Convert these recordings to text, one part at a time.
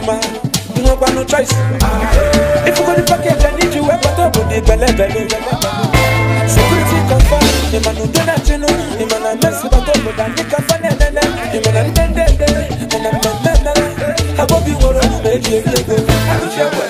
woman. You know, but no choice. Ah, if you go the package, I need you. Ever talk with the belly belly. Security confirm. The man do that, you know. The man mess with, I talk with, I make a funny. Eh, eh, eh. The man I bend, bend, bend. And I'm not, not, I won't be worried. Maybe baby, baby, good. I don't care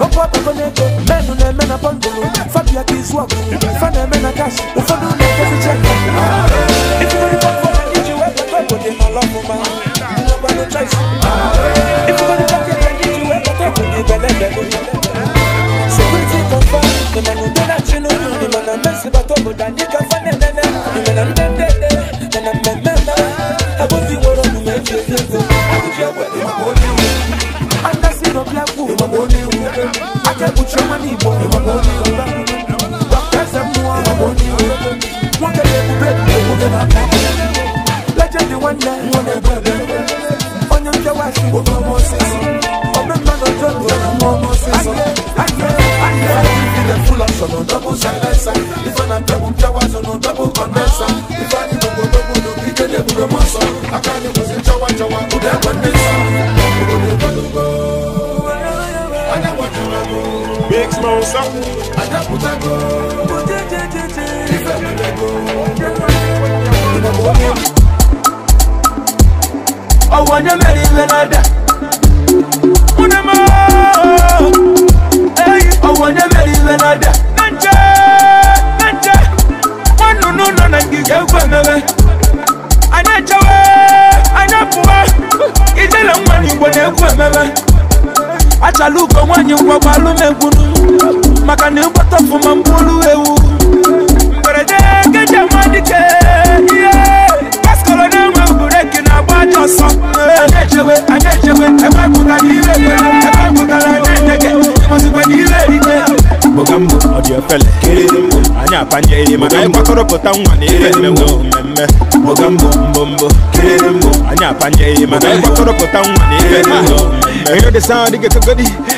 Okwa poko neko Menu ne mena pangolo Fabi ya kizwaku Fane mena kashi Ufandu máa ń sá. àjàkúta go mo jẹ́ jẹ́ jẹ́ jẹ́ ìfẹ́ mi lẹ́ go. ọwọ́ ní mẹ́rin lẹ́nàdà múná mọ́ ọwọ́ ní mẹ́rin lẹ́nàdà nàjẹ́ nàjẹ́ wọ́n nùnú nọ̀nà gígé gbẹ̀mẹ̀mẹ̀ anájẹ́wẹ́ anábùwẹ́ ìjẹ́lẹ̀ ń wà achala uko nwaanyị ngwagwalu m egwunu maka na mkpọtọfụma mgbolu ewu mberede keje nwa ihe paskọrọ na-enwe bureki na-agba ajọ ọsọ anyị echewe anyị echewe ebepụtara ire kwere ebepụtara na-edege ịmụzikwana ire rite mbogambo ọ dị efele anyị apanye ihe maka anyị nwa na ire mmemme ogambo mbombo kirembo anya panye mana koropota nwa na ibe na eyo de sound get to godi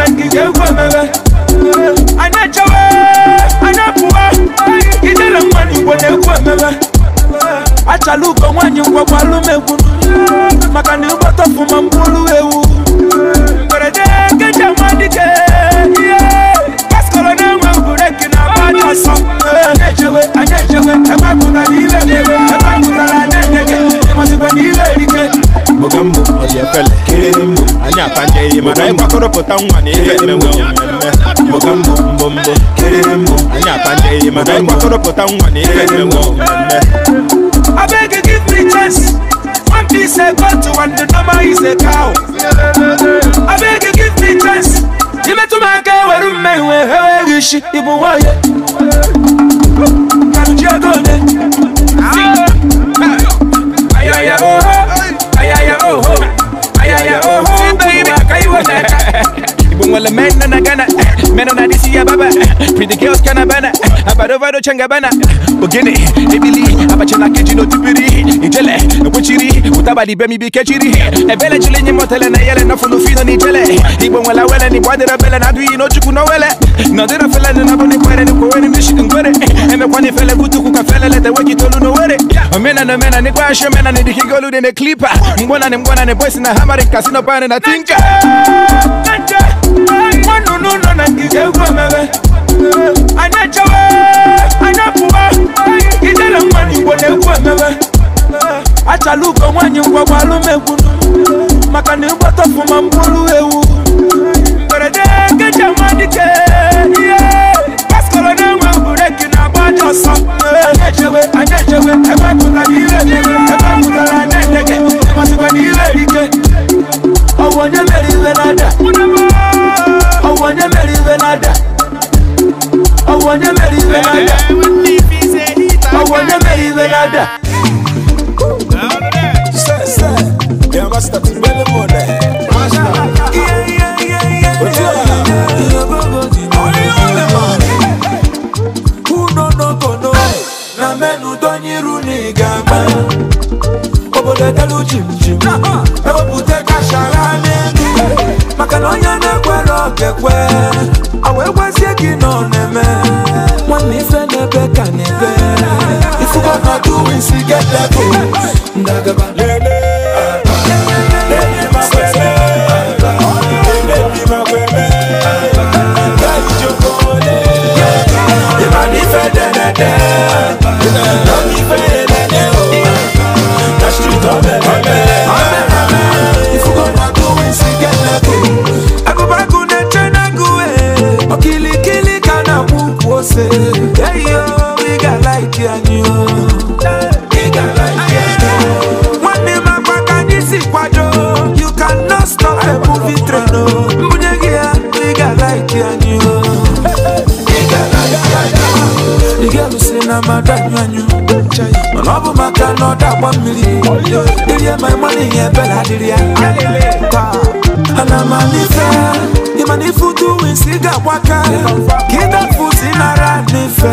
woman, give you woman. I know Jawa, I know Pua, you shall look on when you walk, I look at you. Makani, what up for my blue. efele anyị atanje give me chance one piece a goat one the normal is a cow abeg give me chance imetụ m aka ewere mmehue eweghị isi ịbụ nwanyị ka ji ego onye ayaya oho oh. ayaya oho oh. Oh, oh, ibongwa le mena nakana eh, mena nadisiya baba pretty girls kana bana eh, abado vado changa bana bogene ebili abachana kejino tipiri itele nokuchiri utabali bemi bikechiri ebele chilenye motele na yele na fulu fino ni tele ibongwa la wele ni bwadera bele na dui no chuku no wele na dira fele na bone kwere ni kwere ni shikungwere eme kwani fele kutu kuka fele lete weki tolu no wele yeah Mena no mena ni kwasho mena ni dikingo lude ne klipa Mbwana ni mbwana ni boys na hammer casino pane na tinka Nanje na mewe Anacho we Anapuwa mwani mewe Acha luko mwanyi kwa kwalume kunu Makani mboto fuma mbulu ewu Mberede kecha Yeah ọsán. Anẹ́jẹ̀wé anẹ́jẹ̀wé ẹgbẹ́ kúta ní ilé ìgbẹ́ ẹgbẹ́ kúta ní anẹ́jẹ̀gẹ̀ ẹgbẹ́ kúta ní ilé ìgbẹ́. Ọwọ́ nye mẹ́rin ìwé n'ada. Ọwọ́ nye mẹ́rin ìwé n'ada. Ọwọ́ nye mẹ́rin ìwé n'ada. Ọwọ́ nye mẹ́rin ìwé n'ada. Sẹ́sẹ́, yàrá ga you chimchim ewepụta kashara n'elu maka na onye na-ekwere okekwe na madanywanyu my ọ bụ ma put another one million. Did you my money? Yeah, Bella, did you? And I'm a nife. Imani futu insiga waka. Kida futi nara nife.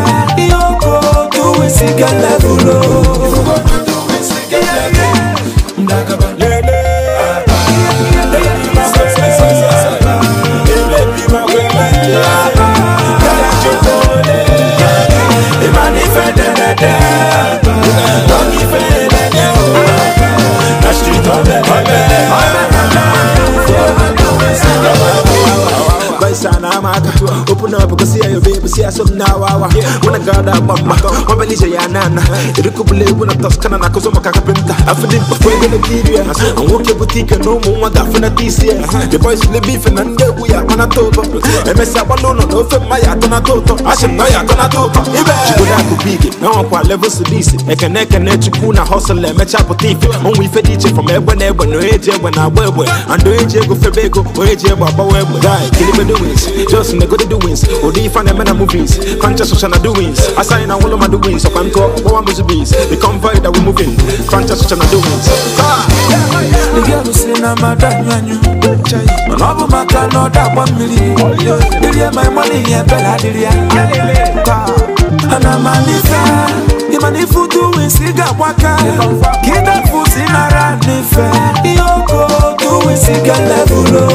Yoko tu insiga levulo. Yoko tu insiga levulo. Ndagaba lele. Yeah. Nasci tua bebê, bebê, bebê, bebê, bebê, bebê, bebê, bebê, bebê, Koisa na mata Open up kusi ya yubi Kusi ya sumna wawa Wana gada mama Wambelija ya nana Iriku bule wuna toskana na kuzoma kakapinta Afidi mkwenge na kiria Anguke butike no mwa gafina tisia The boys le beef na ndewu ya mana toto Emesa walono no fema ya tona toto Ashim no ya tona toto Ibe Chikuna kubigi Na wankwa level sudisi Ekene kene chikuna hustle Emecha butifi Onwe ife diche from ebwe nebwe No eje ebwe na webwe Ando eje ego febego O eje ebwe abawebwe Guy, kilime the doings, just in the good doings. Or do you find them in the movies? Conscious of the doings. I sign all of my doings. So I'm called one of the bees. The convoy that we're moving. Conscious of the doings. The girl one million. my money? Bella, fusi mara nife Yoko tu wisiga levulo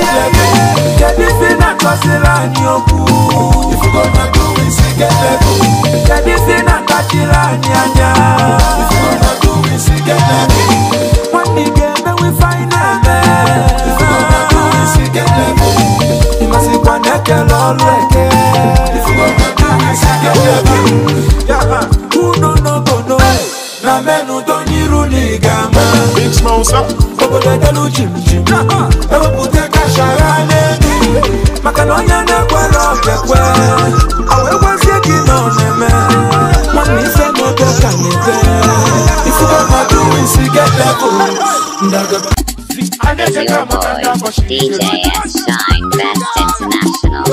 get level. Get na kọsila ni okwu. If you go na do we see get level. Kedu si na kachila ni anya. If you go na do we see get level. Nwanne gị eme we find eme. If you go na do we see get level. Ịmasịkwa na ekele ọrụ eke. If you go na do we see get level. Yaba unu n'obodo na menu donyiru na ịga ama. Obodo ekele uchim chim. Ewepụta ochara boy, DJ Shine, Best International.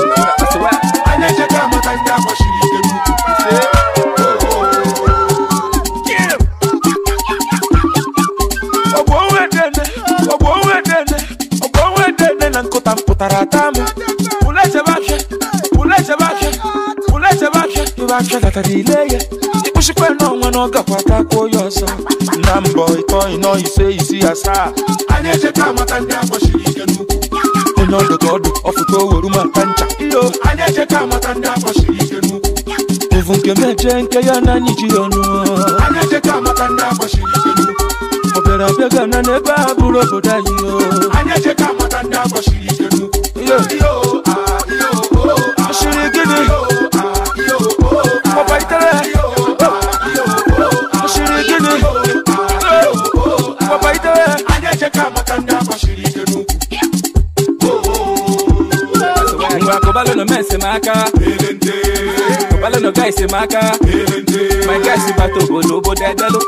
iwe achọgatara ile ya kwụsịkwana ọnwa na ọ gakwata kwuo ya ọsọ na mbọ ịtọ ịnọ ise isi asaa anyị ejeka amata ndị agbachiri ike n'ukwu onye ọdụ ka ọdụ ọfụta oweru maka ncha iyo anyị ejeka amata ndị agbachiri ike n'ukwu ụvụ nke m eje nke ya na anyị ji ọnụ anyị ejeka amata ndị agbachiri ike n'ukwu obere abịaga na n'ebe a bụrụ obodo anyị o anyị ejeka Wa kobalo no mense maka. Elente Kobalo no guy semaka Elente My guy si bato go lobo de delo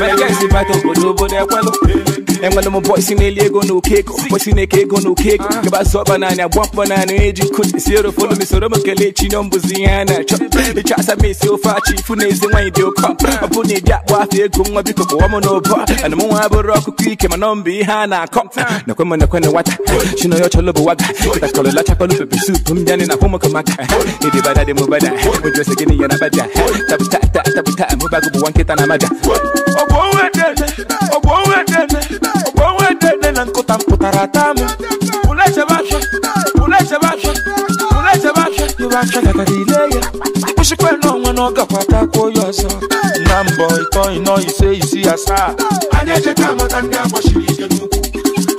My guy si bato go lobo de kwelo É And when meu boy see me lego no cake, boy see me cake no cake. Ah. Que basso banana, bump banana, edge cut the zero for me so much kelechi no buziana. Chop, the chasa me so né? far e nezi when you come. I put it that wa fe go nwa biko ko mo no bo. And mo wa não rock buraco my no be ha na come. Na kwema na kwena wata. Shino yo cholo bo waga. Kita kolo la chapa lu pe soup mjani na pomo kama. Ni di bada de mo bada. Mo jose gini yana bada. Tap tap tá, tap tá, tap tá, tap mo bagu bo wanketa na maja. Obo wete. Obo wete. dede na nkụta mpụtara taa m ule chebe afịa ule chebe afịa ule chebe afịa iwe afịa gagara ile ya kwụsịkwa n'ọnwa na ọ gakwatakwa ya ọzọ na mbọ ịtọ ịnọ ise isi asaa anyị ejeka amata ndị agbachiri ije n'ukwu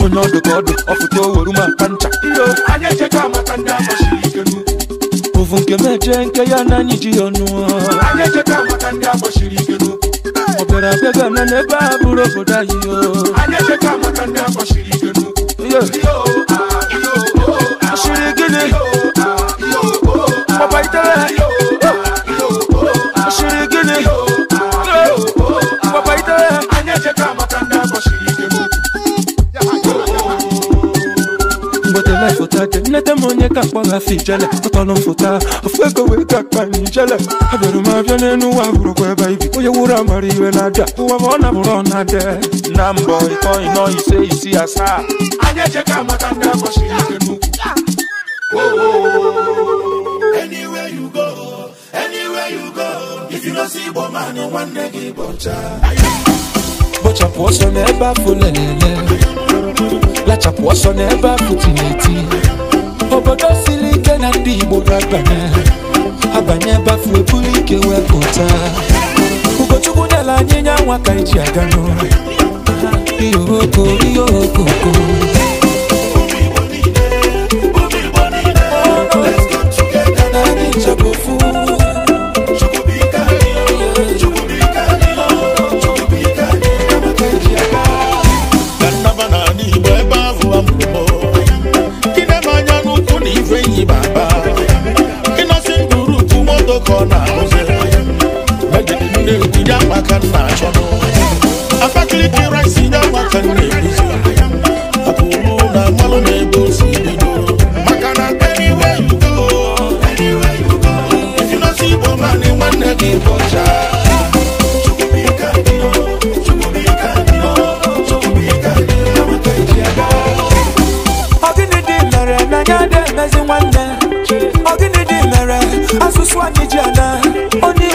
onye ọdụ ka ọdụ ọfụta oweru maka ncha anyị ejeka amata ndị agbachiri ije n'ukwu ovu nke meje nke ya na anyị ji ya ọnụ anyị ejeka amata ndị agbachiri ije n'ukwu kera kega na ne ba buro ko da yi yo anya che ka ma kan da ko shiri genu yo yo ah yo oh shiri genu yo ah yo oh papa itale yo ah yo oh shiri genu yo tade nete monye ka kpọla fi jele ụtọnụ fụta ofekowe ka kpani jele abịara m abịa n'enu ụwa bụrụkwa ebe ibi onye wụrụ amara iwe na-abịa ụwa ma ọ na bụrụ ọ na-ade na mbọ ịtọ ịnọ ise isi asaa anya echeka maka ndị agbachiri ike n'ukwu anywhere you go anywhere you go if you no see igbo man nwanne gị bọcha bọchapụ ọsọ n'ebe afọ lelele na-achapụ ọsọ n'ebe apụtụ na-eti obodo siri ike na ndị Igbo ga-abanye abanye ebe afụ ebuli ike wee pụta Ugochukwu nyela anyị nya nwa ka anyị e ji aga n'ụlọ ọkọ ya ya na ahụzi megide ndị nkuji uswa kijana oni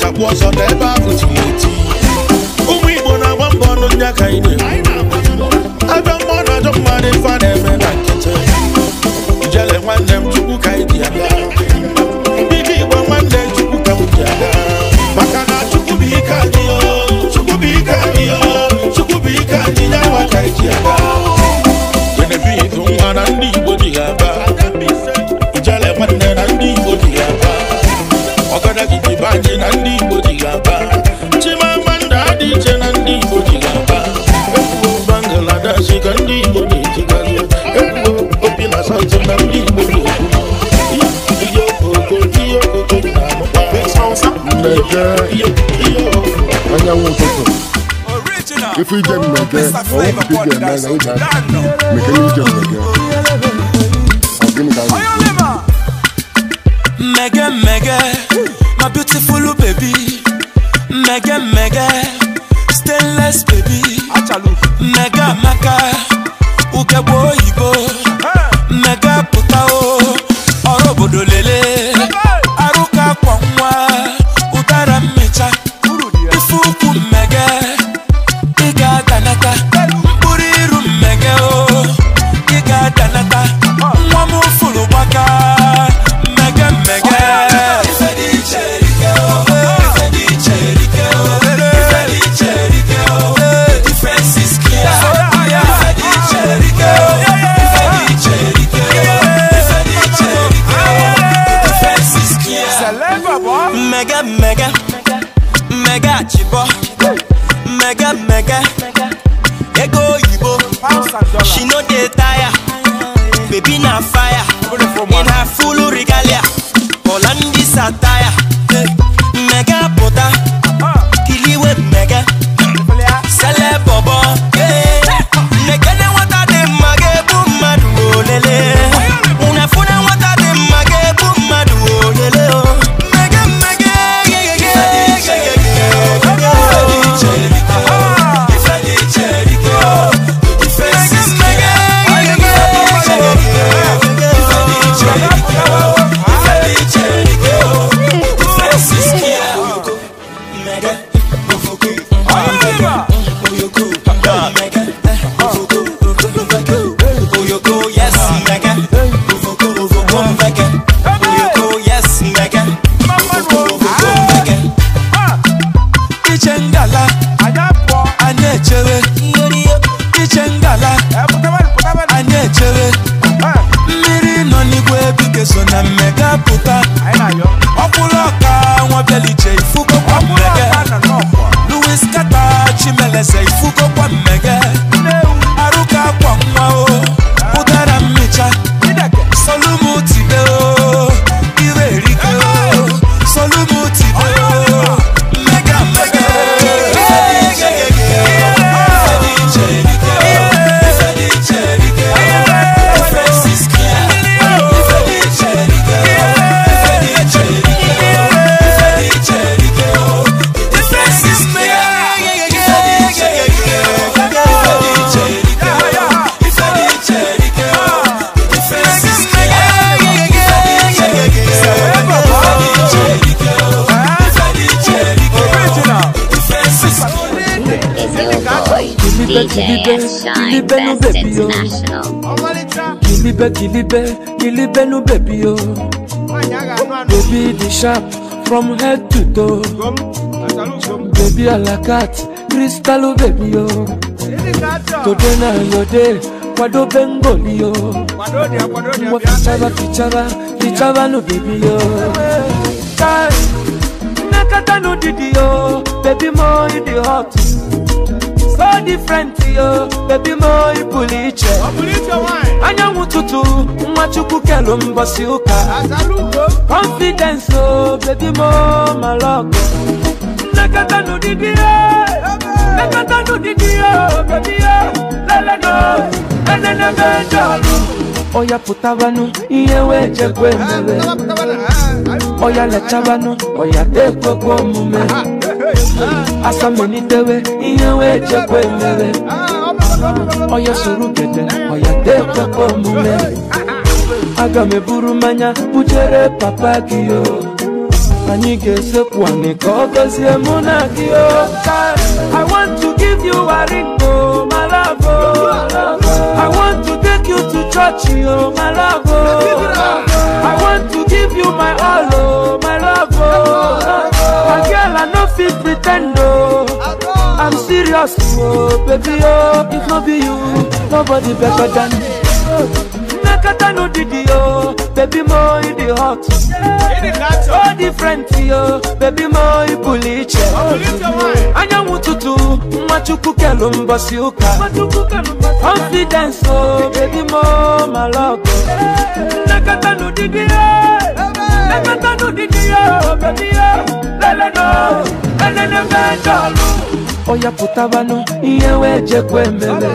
na-achakwụ ọsọ n'ebe ahụ tiri eti ụmụ igbo na-agba mbọ ọnụ ndị aka anyị na-eme ajọ na ajọ mmadụ ife a na-eme na nkịtị jele nwanne m chukwu ka anyị dị ya ndị igbo nwanne chukwu ka m dị ya maka na chukwu bụ ike anyị chukwu bụ ike anyị chukwu bụ ike anyị nyanwa ka anyị dị ya Abaji na ndị Igbo ji ga-aba Chimamanda dị iche na ndị Igbo ji ga-aba Ekwuo Bangladesh ka ndị Igbo na-ejigazi Ekwuo Opi na Sanzu na ndị Igbo na-ekwu Ihe okoko, ihe okoko na-amụkwa Mmege, ihe okoko Anyanwụ ụtụtụ Ife ije oh, mmege, ọwụ pụta ije mmege na ịga Mmege ije mmege Ọ gịnị ka anyị? Mmege mmege my beautiful baby mega mega stainless baby mega mega ugegbe oyibo. kilibe kilibe kilibe no baby o baby the sharp from head to toe baby alakat crystal o baby o today na your day kwado bengoli o wa fichaba fichaba fichaba no baby o nakata no didi o baby mo in the hot no different yo baby my police. iche anyanwụ tutu nwa chukwu kelu mbọsi ụka confidence o baby mo malọgụ nnekọta n'ụdịdị ya nnekọta n'ụdịdị ya baby Lele ya leleno enenebe jọlụ oya pụtabanụ iye weje jekwe mere oya lechabanụ oya dekwekwe omume asamelitewe ihe wee chekwa emewe soro gede ọya dekpekwa omume aga m eburu mmanya bujere papa gị o anyị ga-esekwu anyị ka ọ gọzie mụ na gị o I want to give you a ring oh my love oh I want to take you to church oh my love oh I want to give you my all oh my love oh girl i no fit pretend, oh. i'm serious oh, baby oh. if not be you nobody better than me. Nakata no didi oh, baby mo in the hot. Oh different yo, baby mo i buliche. Oh, Anya mututu, machuku kelu mbasi uka. Confidence oh, baby mo my love. Nakata no didi oh. yo, nakata no didi oh, baby oh. leleno enene mejọlu oya pụtabanụ ihe wee jekwa ememe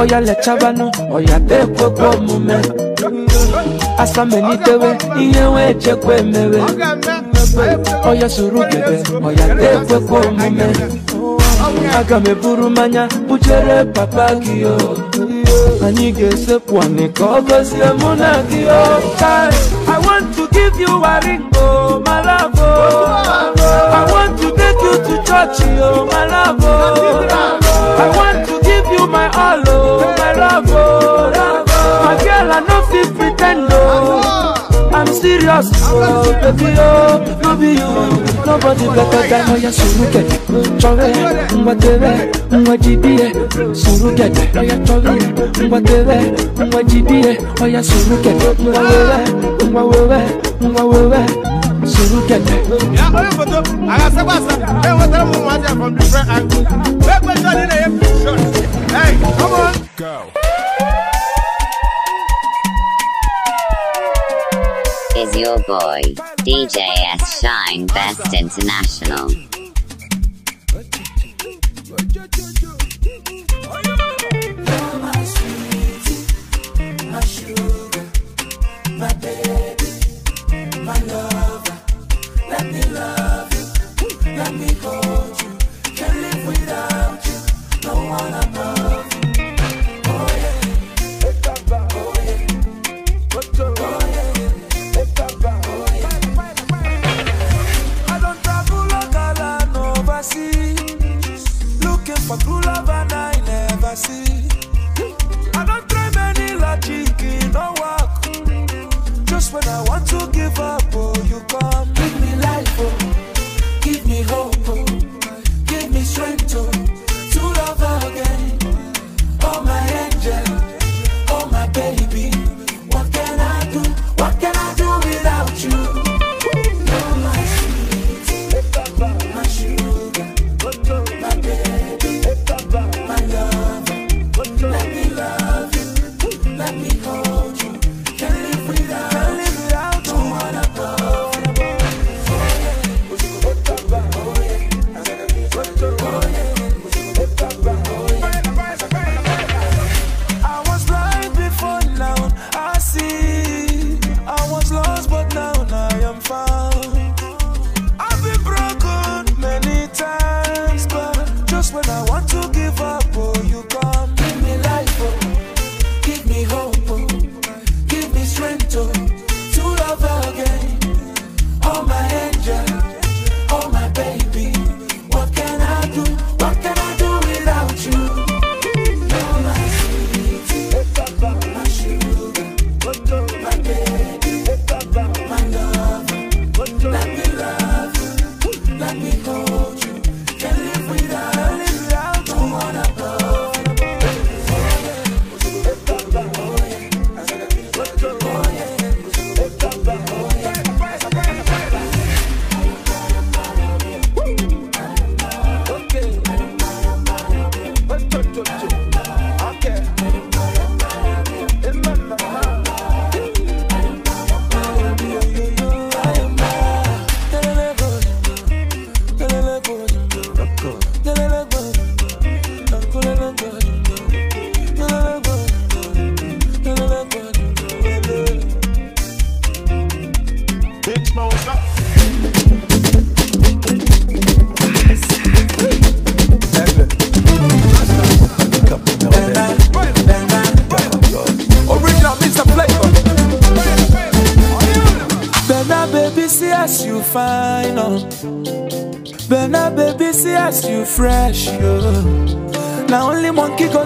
oya lechabanụ oya dekwekwa omume asamenidewe ihe wee jekwa emewe oya soro oya dekwekwa omume aga m eburu bujere papa gị anyị ga-esepụ anị ka ọ gọzie mụ na gị o I want to give you a ring o love, oh. I want to take you to church, oh, my love, oh. I want to give you my all, oh, my love, oh. My girl, I no fit pretend, oh. I'm serious, oh, baby, oh, no be you. Nobody better than my Suruke. Chove, Mbatebe, Mbatibie, Suruke. Oya Chove, Mbatebe, Mbatibie, Oya Suruke. Mbawewe, Mbawewe, Mbawewe. suru ya o ye foto a ka e from different angle bɛɛ ye Is your boy DJ S Shine Best International?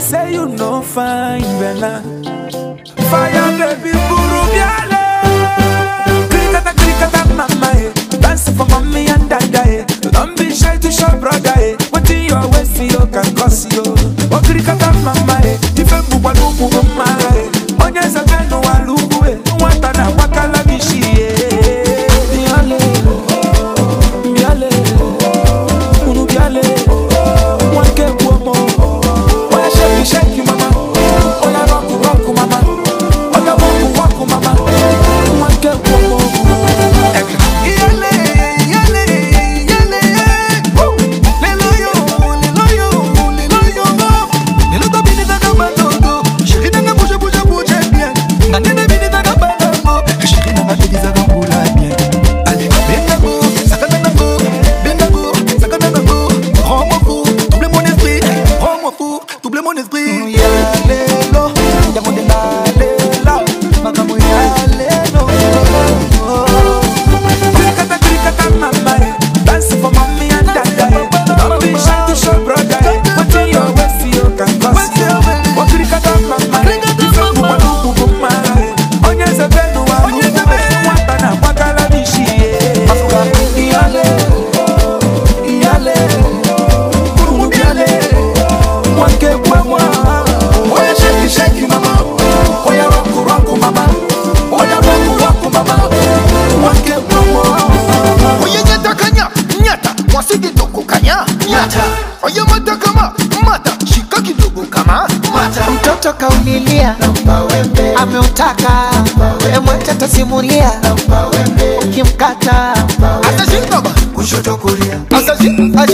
say you know fine, Bella.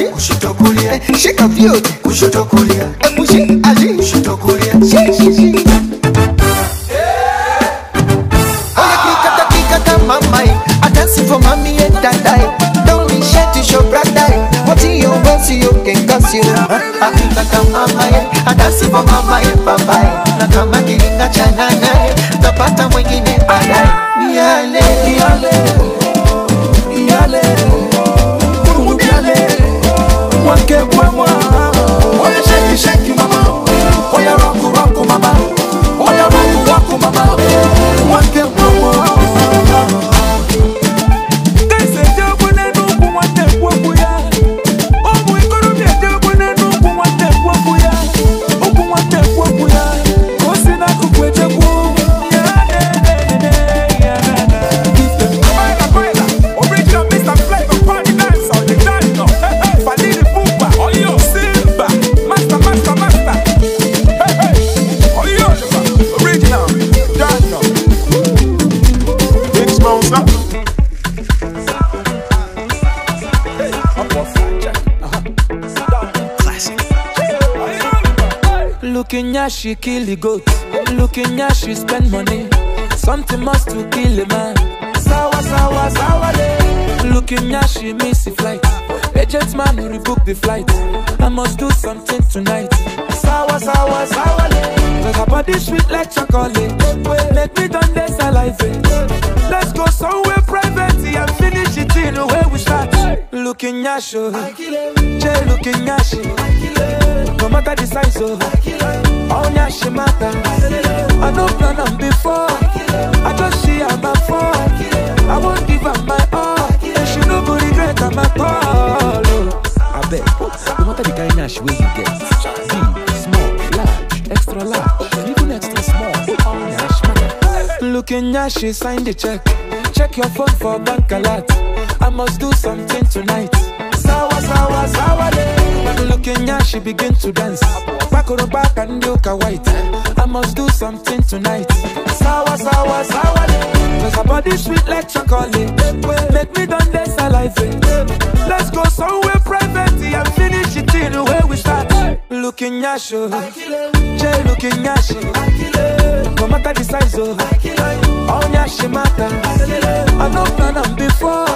kushoto kulia eh, shika vyote kushoto kulia emushi eh, her, she kill the goat. Looking her, she spend money. Something must to kill a man. sawa sawa sawa day. Looking her, she miss the flight. Agent man who rebook the flight. I must do something tonight. Sawa sawa sawa day. Cause her this sweet like chocolate. Make me done this saliva. Let's go somewhere private and finish it in the way we start looking at you. Jay looking at you. No matter the size of all she matter. I know plan on before. I just see her my fall. I won't give up my all. And she no go regret I'm at all. Oh. I bet. No matter the kind of she you get. Big, small, large, extra large, even extra small. All Nash matter. Looking at she sign the check. Check your phone for bank alert. I must do something tonight. Sawa, sawa, sawa, But looking at she begin to dance. Back on the back and look white. I must do something tonight. Sawa, sawa, sawa, Cause her body sweet like chocolate. Make me done this alive. Let's go somewhere private and finish it in the way we start. Looking at you. Jay looking at you no matter the size oh Onya she matter I no plan on before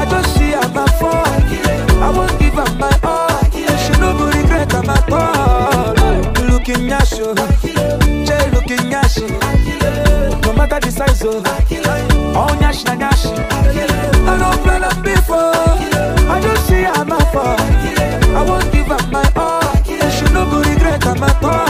I just see am my fall I won't give up my all She no go regret am at all Looking at you Jay looking at you No matter the size oh Onya she na she I no plan on before I just see am my fall I won't give up my all She no go regret am at all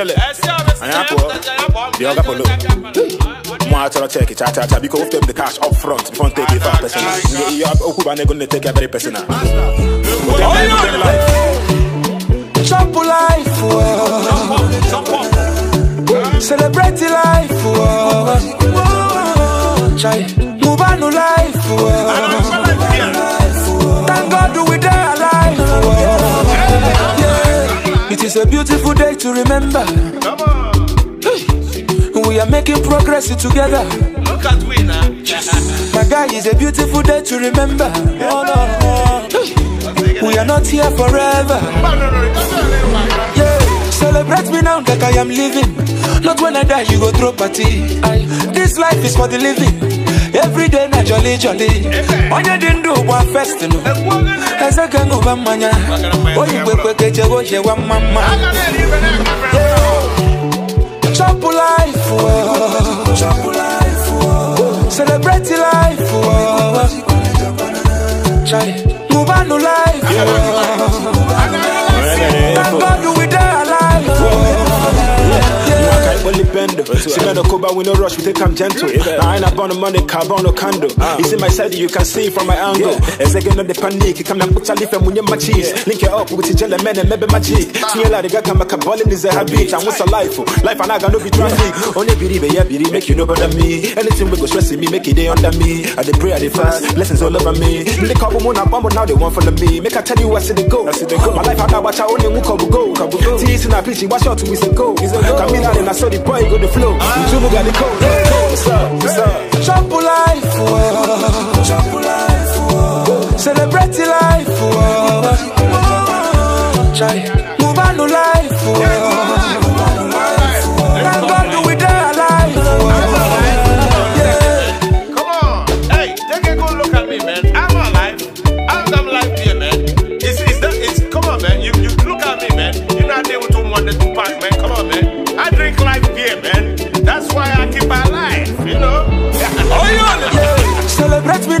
Jelly. Anyako. The other polo. Mwa tell check it, cha cha cha. Because take the cash up front before take it five personal. You have Okuba and gonna take it very personal. Chop life, oh. celebrate life, oh. move on life, oh. It's a beautiful day to remember. Come on. We are making progress together. Look at we now. My guy, it's a beautiful day to remember. Oh no. We are not here forever. Celebrate me now that I am living. Not when I die, you go throw party. This life is for the living everyday na jolly jolly onye dị ndụ gba festin eze ga ṅụba mmanya oyi kwekwe ka eje oyewa mma mma chop life oh. oh. celebrate life ṅụbanụ oh. life only holy bendo. Simen no Cuba, we no rush, we take time gentle. Now I ain't about money, carbon no candle. Ah. It's in my side, you can see from my angle. As again on the panic, you come and put a leaf and when my cheese. Link it up with the jelly man and maybe magic. Smear like a gama cabalin is a habit. And what's a life? Oh? Life and I got no be traffic. Only believe, yeah, believe, make you know better me. Anything we go stressing me, make it day under me. I the pray, I the fast, blessings all over me. They call me one, i but now they want follow me. Make I tell you, what's in the go. I see the go. My life, I got watch, I only go. Go, go. Teasing, a preaching, watch out we two weeks ago. Camila, then I saw the boy ah. got the flow. You two got the code. What's up? What's up? Chop life, oh. Chop life, oh. Celebrate oh. life, oh. Try.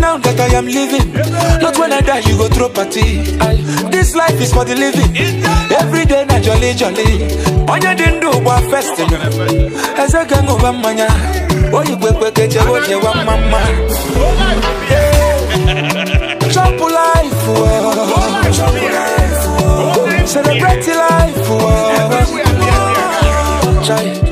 now that I am living. Not when I die, you go throw party. This life is for the living. Every day, na jolly jolly. Onye dị ndụ gba festival. Eze ga ṅụba mmanya. Oyi kwekwe keche oche wa mma mma. Chop life, oh. Chop life, oh. Celebrate life, oh. Try.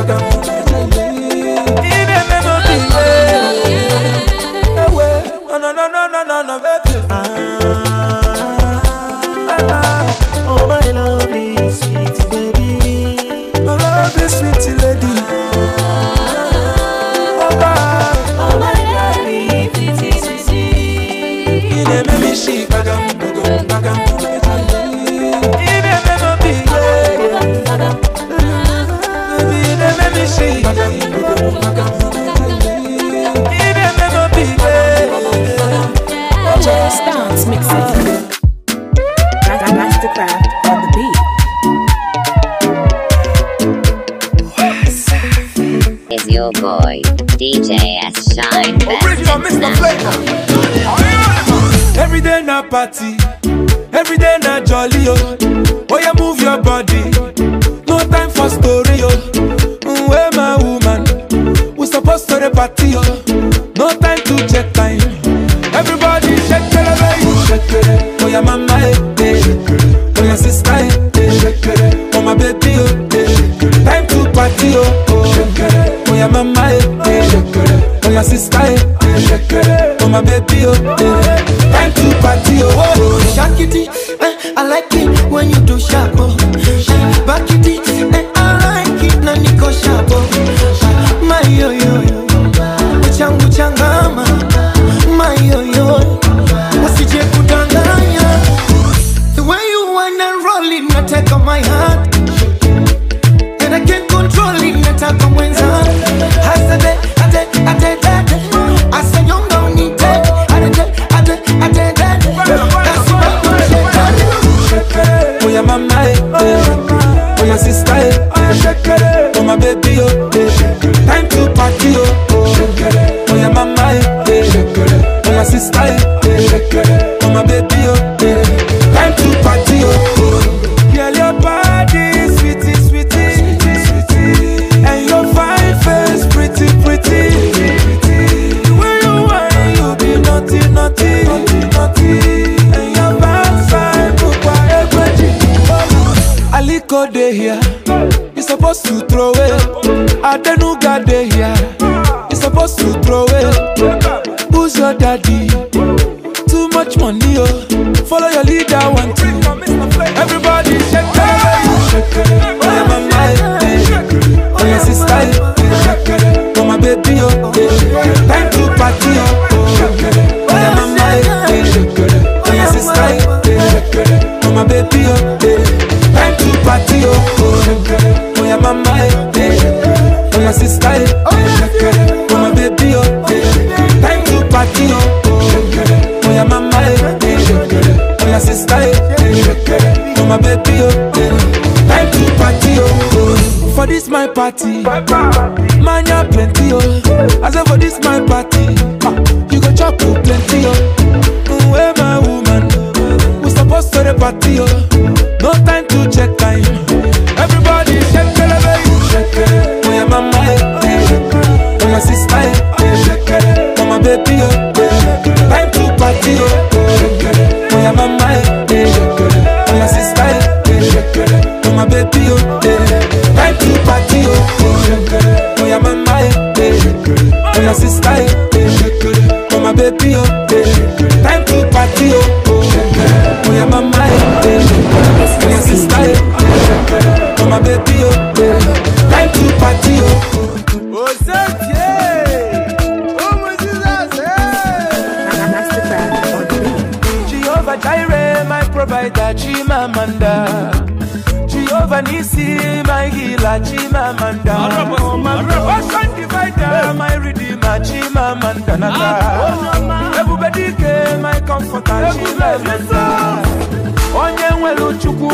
Instagram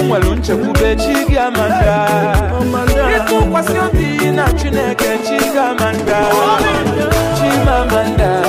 nwere nchekwube chi gị ama nga ịtụkwasị obi na chineke chi gị ama nga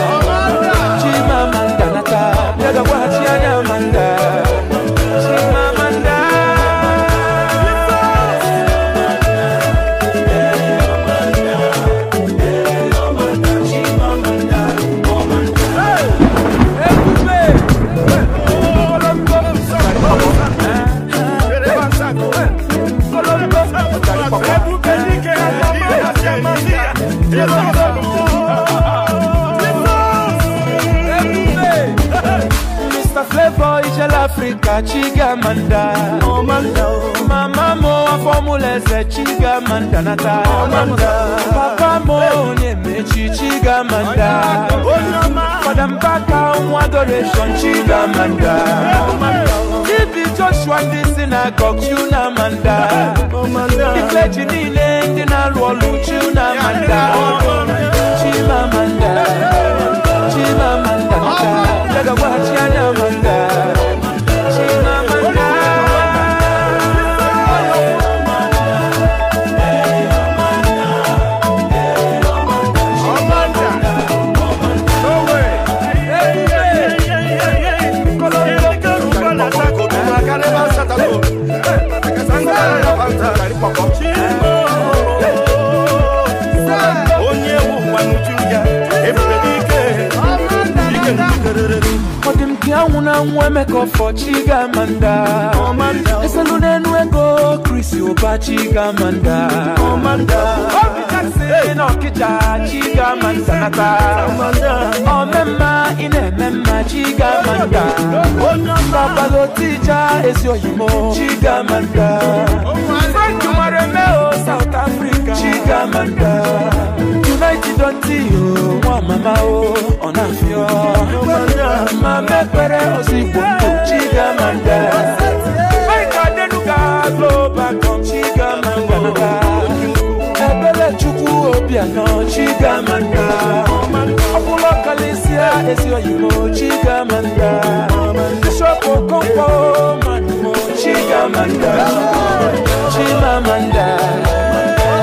Chiga manda, mama mo chiga manda nata papa mo onyemechi Madam paka nwa adoration chigamanda ibi joshua ndị si na gọg chunamanda ifeji niile ndị na-alụ ọlụ chunamanda wemeko for chigamanda oh, eselunenwego krisi ụba chigamanda obijaksina oh, ọkịja chigamanda nata omemma ị na-eme mma chigamanda babalotija ezi oyimo chigamanda french mara eme o south africa chigamanda Tonight you don't see you, one mama oh, on a few. Mama pere osi popo chiga manda. My God enuka global come chiga manda. Ebele chuku obiano chiga manda. Ọkùnrin kàlẹ́síà èsì òyìnbó chiga manda. Bísọ̀pù kọ́ńpọ̀ màdùmọ̀ chiga manda. Chimamanda.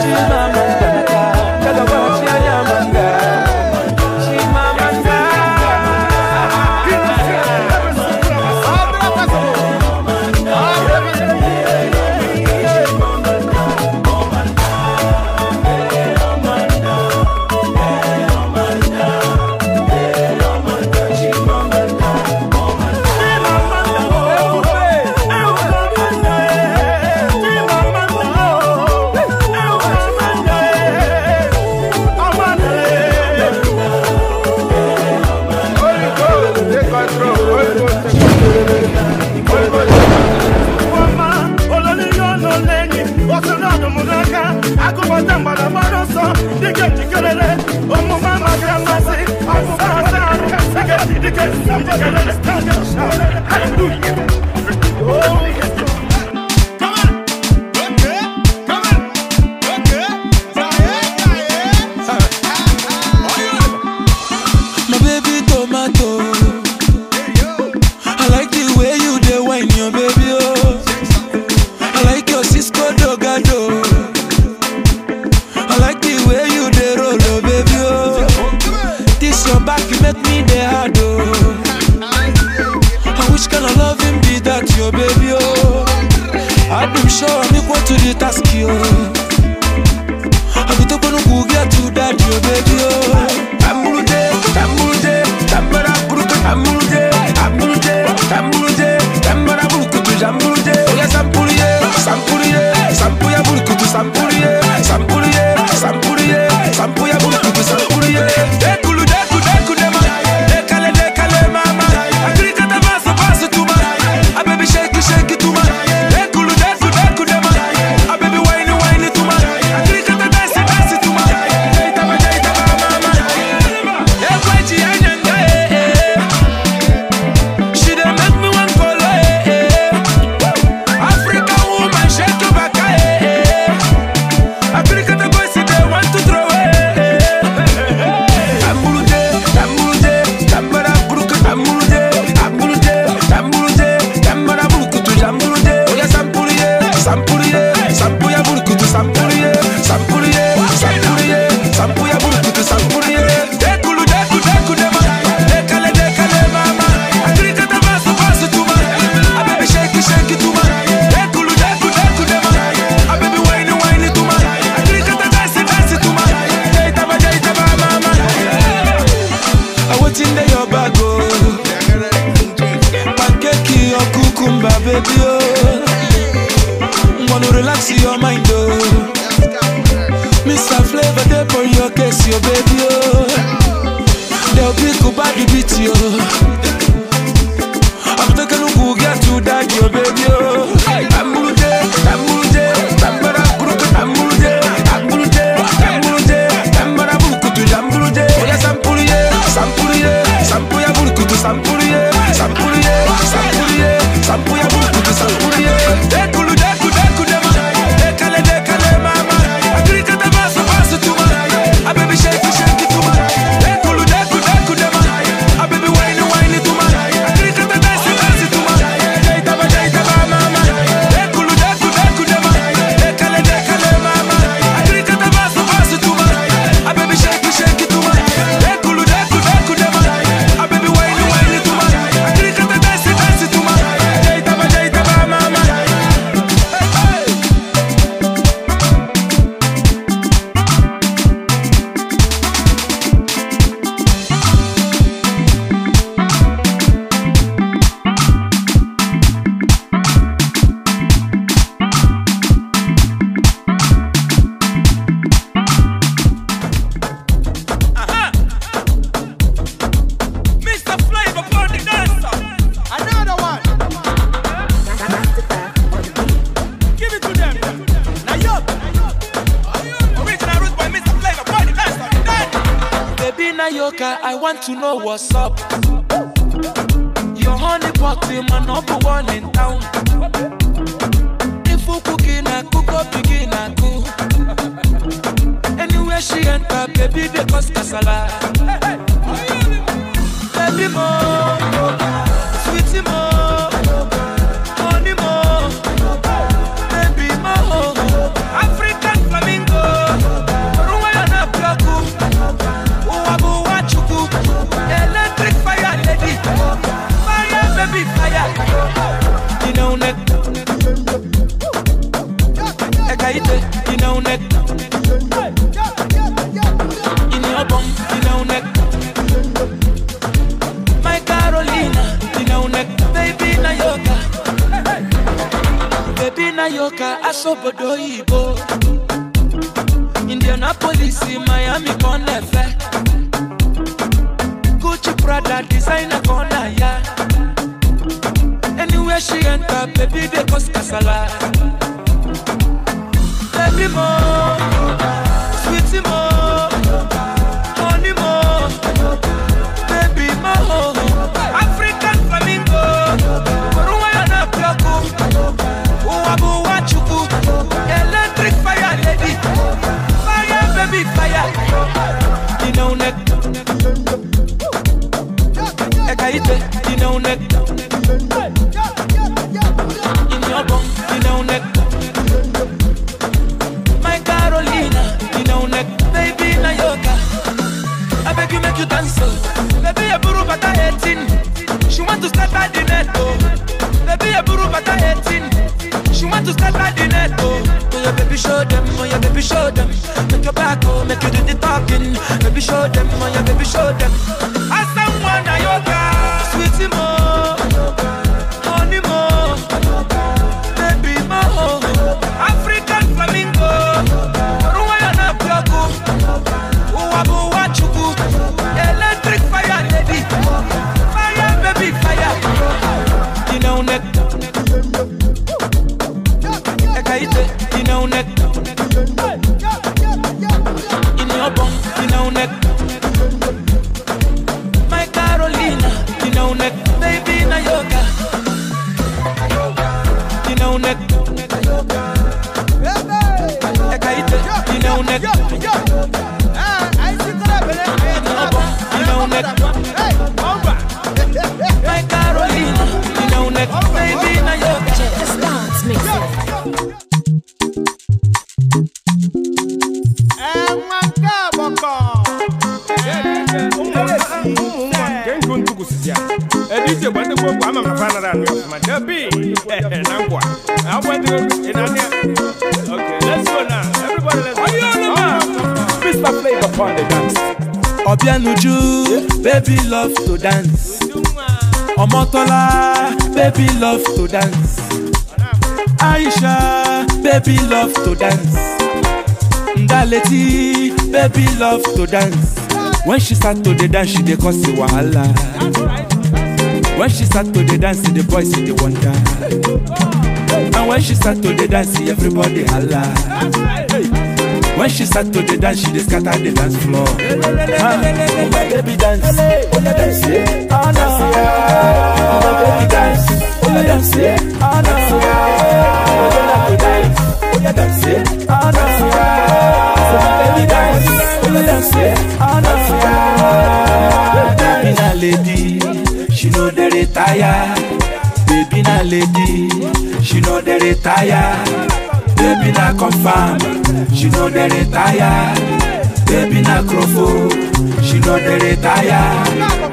Chimamanda. Hallelujah. want to know what's up. Your honey pot in my number to dance when she start to dey dance she dey cause a wahala when she start to dey dance the boys dey wonder and when she start to dey dance everybody hala when she start to dey dance she dey scatter the dance floor ah oh my baby dance una dance ana oh my baby dance una dance ana my baby dance una oh, dance ana say Honor ah. Baby na lady She know they retire Baby na lady She know they retire Baby na confirm She know they retire Baby na crofo oh, She know they retire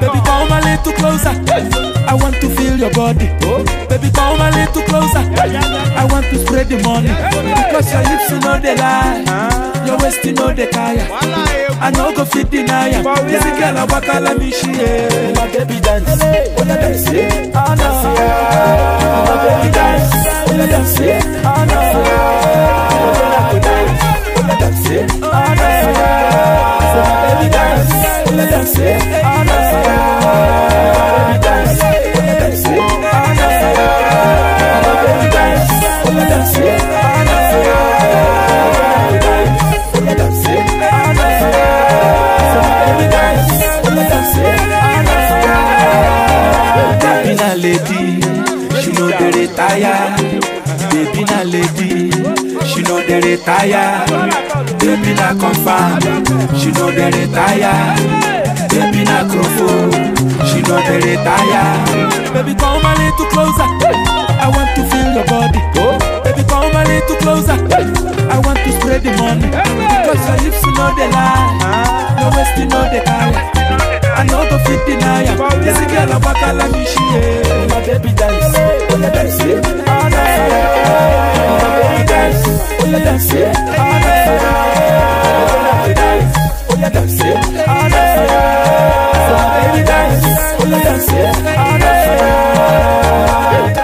Baby come a little closer I want to feel your body. Oh. Baby, come a little closer. I want to spread the money. Because your hips, you know they lie. Ah. Your waist, you know they tire. I know go fit deny ya. This girl, I walk all me she. My baby dance. What I dance it? Oh no. My baby dance. What I dance it? Oh no. My baby dance. What I dance it? Oh no. My baby dance. What I dance it? Oh no. lady, she know the retire. Baby na lady, she know the retire. Baby na confirm, she know the retire. Baby na crofo, she know the retire. Baby come a little closer, I want to feel your body. Oh. Baby, come a little closer. I want to spread the money. Cause your lips know the lie. No wasting you the time. I know the fit deny. This girl a waka like me, My baby dance. Oh, yeah, dance. Oh, yeah, ah, ah, dance. Oh, yeah, dance. Oh, yeah, ah, Oh, yeah, dance. Oh, Oh, yeah, dance. Oh,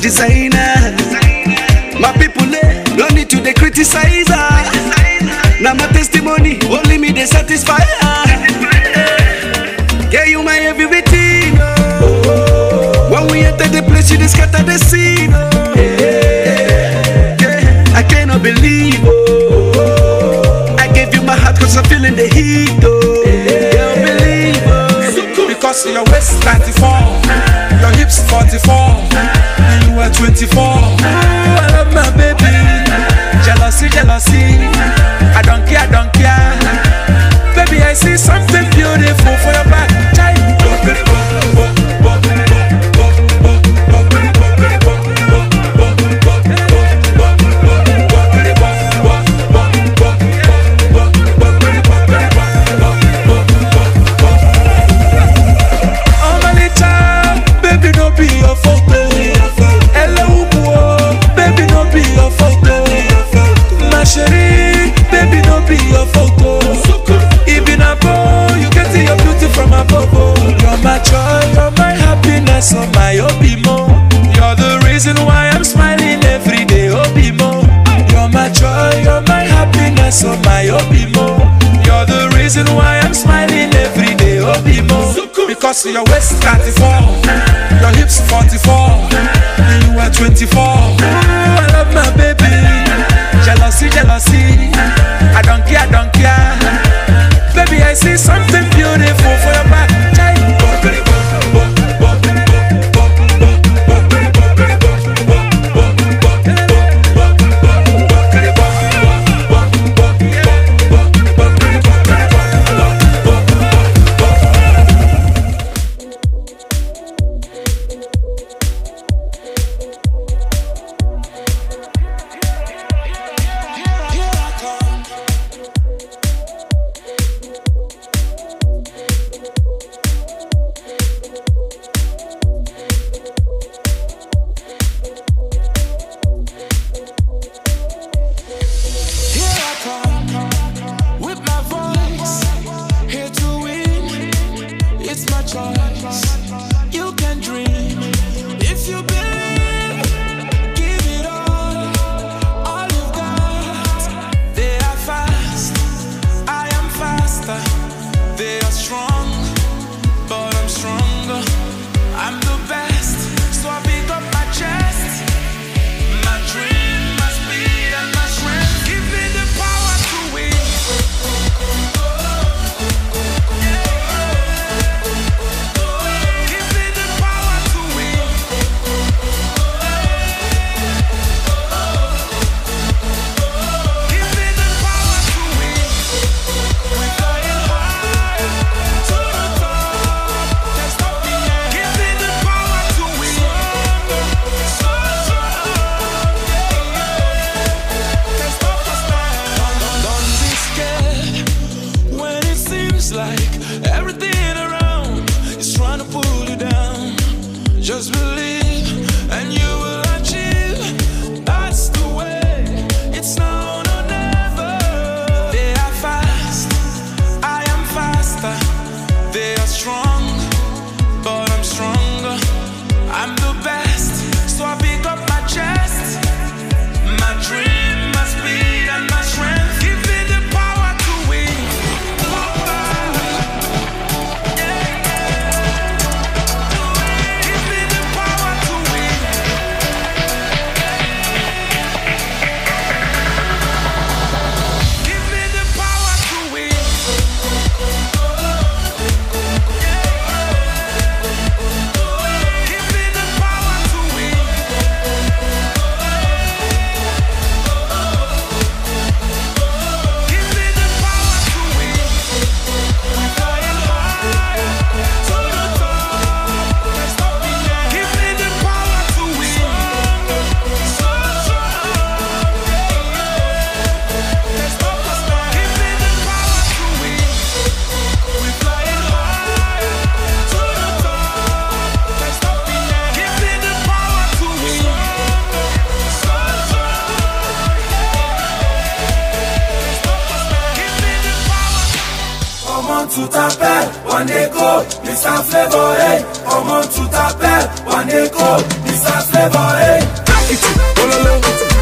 designer. My people, eh, don't need to they criticize her. Now my testimony, only me they satisfy her. Yeah, you my everything. Oh. When we enter the place, you scatter the scene. Oh. Yeah, yeah, I cannot believe. Oh. I gave you my heart cause I'm feeling the heat. Oh. Yeah, oh. Because your waist 94, your hips 44. I'm 24. Cause your waist 34, your hips 44 to tu t'appelles One Echo, Mr. Flavor, hey Comment tu t'appelles One Echo, Mr. Flavor, hey Take it, oh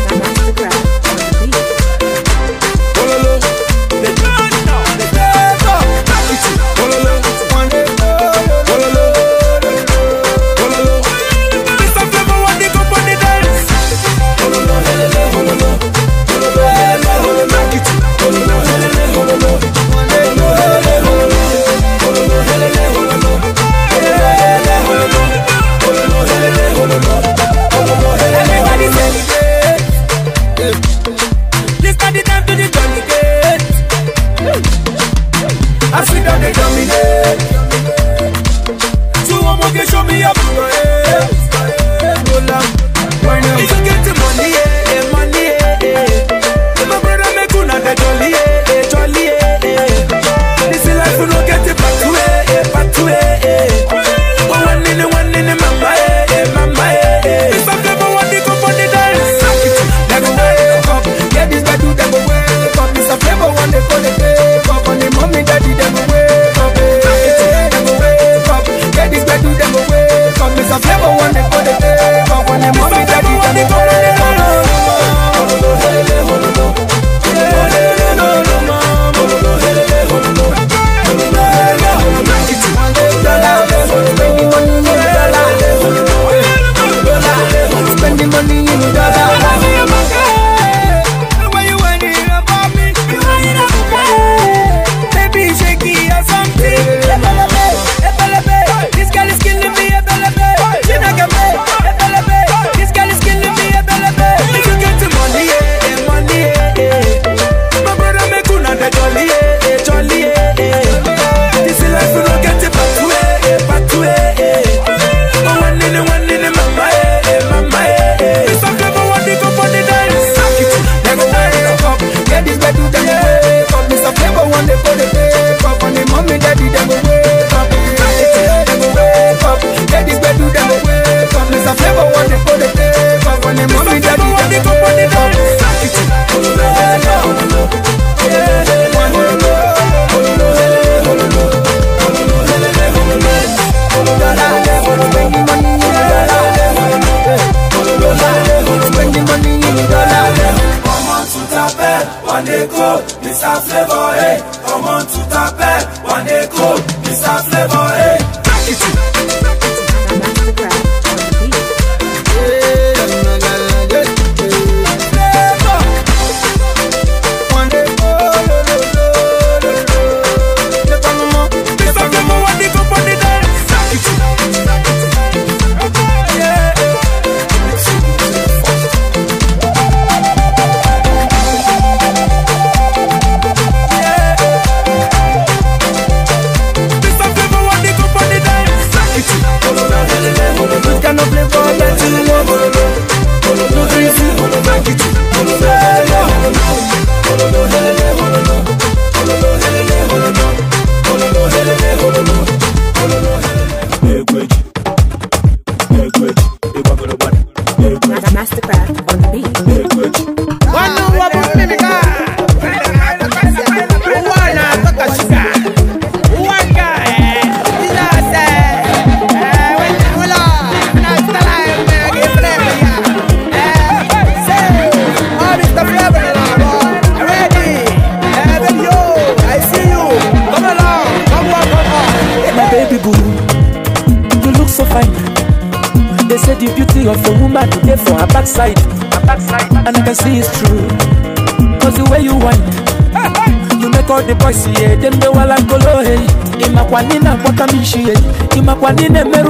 kwa nini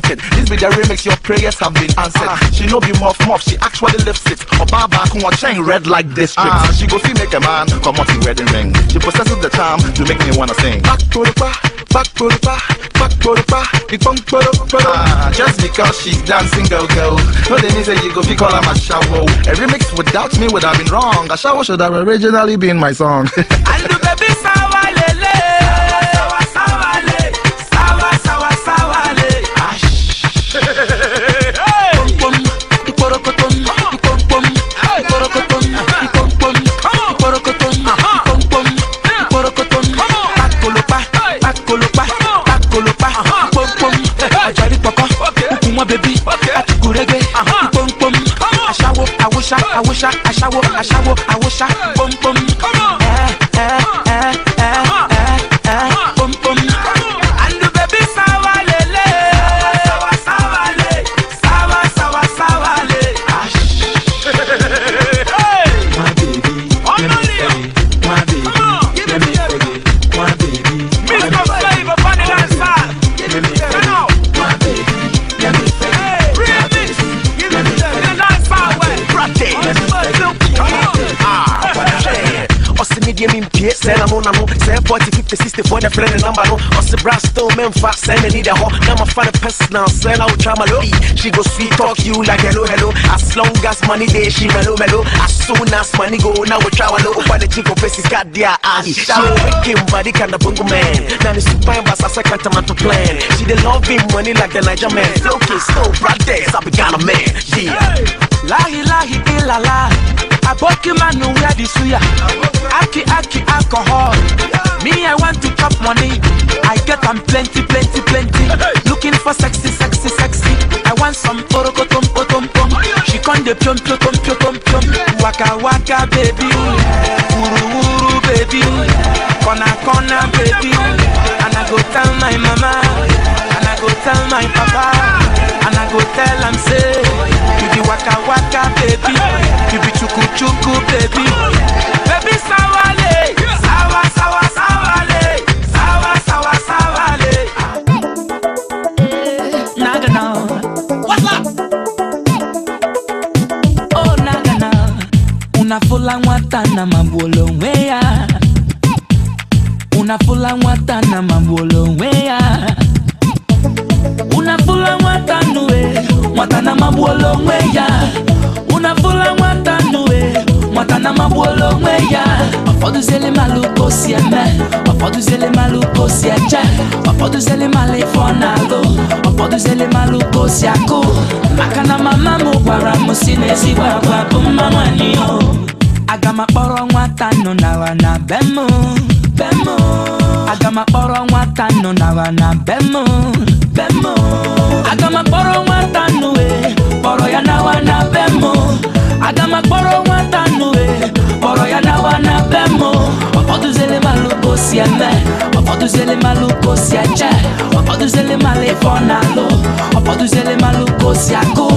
planted. This be the remix, your prayers have been answered. Uh, she no be muff muff, she actually lifts it. Oba back chain red like district. Ah. Uh, she go see make a man come out the wedding ring. She possesses the charm to make me wanna sing. Back to the bar, back to the bar, back to the bar, the punk to the bar. Uh, just because she's dancing, girl, girl. No, they need say you go be call her a shower. A remix without me would have been wrong. A shower should have originally been my song. I I aṣáwó aṣáwó même face scène, elle est dehors. Dans ma fan de peste dans scène, out Jamalori. She go sweet talk you like hello, hello. As long as money there, she mellow, mellow. As soon as money go, now we travel low. Find the chico face is got their eyes. She wicked body kind of bungo man. Now the super embass, I second time to plan. She the loving money like the Niger man. Flow kiss, no brothers, I began a man. Yeah. Lahi, lahi, illa, eh, la. Aboki man who wear the suya. Aki aki alcohol. Me I want to chop money. I get am plenty plenty plenty. Looking for sexy sexy sexy. I want some oroko tom tom tom. She come de pion pion tom pion tom pion. Waka waka baby. Uru uru baby. kona kona baby. And I go tell my mama. And I go tell my papa and I go tell am say you be waka waka baby, you be chuku chuku baby, baby oportuzelema lefo na go oportuzelema lukosi ako maka na mama mo gwara mosi na ezigbo agwa bụ mma nwanyị o oh. ofoduzelema levọ na lo ofoduzelema lugosi akụ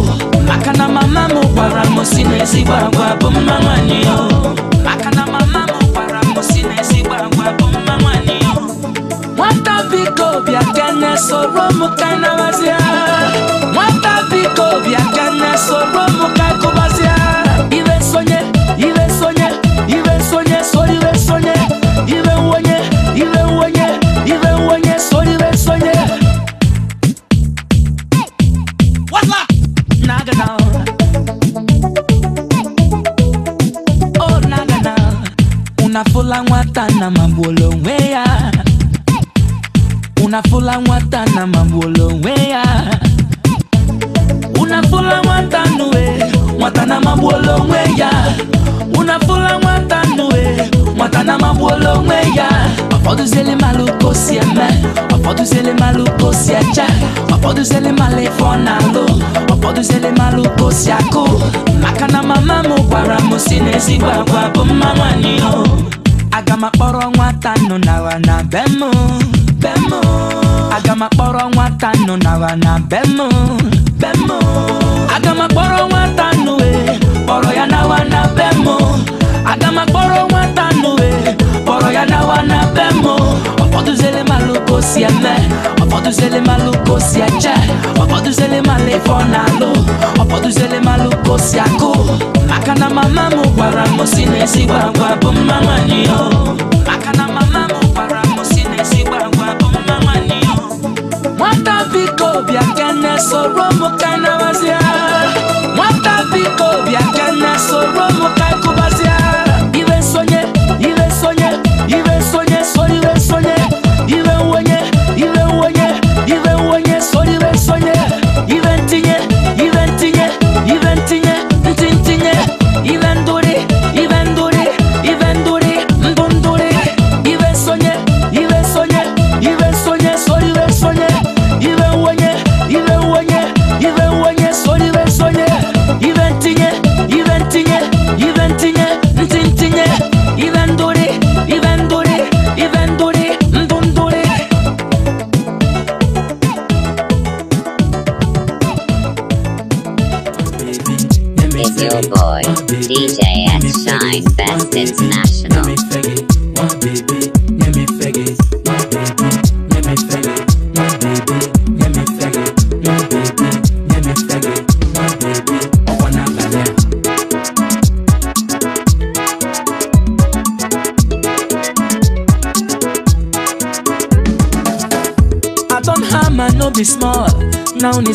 maka na mama m gwara m si na ezigbo agwa bụ o maka na mama m gwara m si na ezigbo agwa bụ mma nwanyị o nwata biko kana kene soro m ka nabazie nwata biko bịa kene soro m ka na magbulu Una fula unu afụla nwata na magbulu onwe ya unu afụla nwata nue nwata na magbulu onwe ya unu afụla nwata nue nwata na magbulu onwe ya ọfọdụziele malụ ka o si eme ọfọdụziele malụ ka o si eche ọfọdụziele malụ ife ọ na-alụ ọfọdụziele malụ ka o maka na mama m gwara m si n'ezigbo agwa bụ mma aga m akpọrọ nwata nọ nara na be m be m aga m akpọrọ nwata nọ nara na be m be m aga m akpọrọ nwata nụ e kpọrọ ya nawa na be m aga m akpọrọ nwata nụ e kpọrọ ya nawa na be m ọkpọdụzere malụ kosi eme ọfọdụzele malụ kosi eche ọfọdụzele malụ ife ọ na-alụ ọfọdụzele malụ kosi akụ maka na mama m gwara m si na ezigbo agwa bụ mma nwanyị o maka na mama m gwara m si na ezigbo agwa bụ mma nwanyị o nwata biko bịa kene soro m ka nawazia nwata biko bịa kene soro m ka kụbazia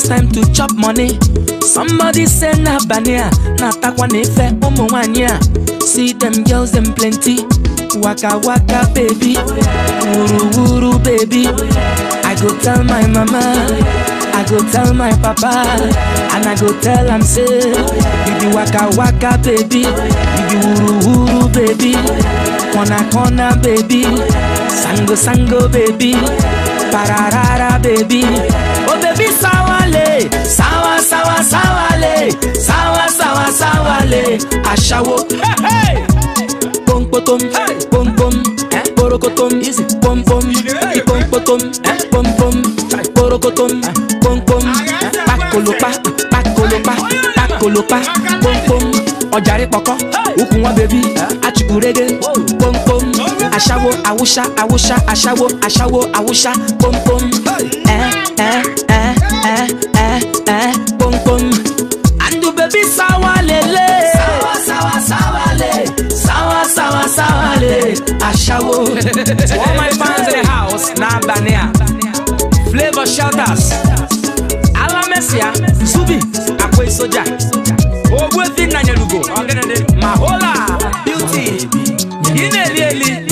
it's time to chop money somebody say na bania ah, na atakwa na ife eh, oh, ụmụ nwanyị see them girls them plenty waka waka baby wuru wuru baby i go tell my mama i go tell my papa and i go tell am say baby waka waka baby Baby be wuru wuru baby corner corner baby sango sango baby pararara baby. sawa sawa le sawa sawa sawa le aṣawo. pompotom pompom porokotom pompom ipompotom pompom porokotom pompom pakolopa pakolopa pakolopa pompom ọjàre pọkọ ukùn wọn bèbí achukurege pompom aṣawo awusa awusa aṣawo aṣawo awusa pompom ẹ ẹ. To all my fans in the house, now Banea. Flavor shelters. Ala Messia, Zubi, Akwe Soja. Ogwefi Nanyelugo, Mahola, Beauty, Inelieli.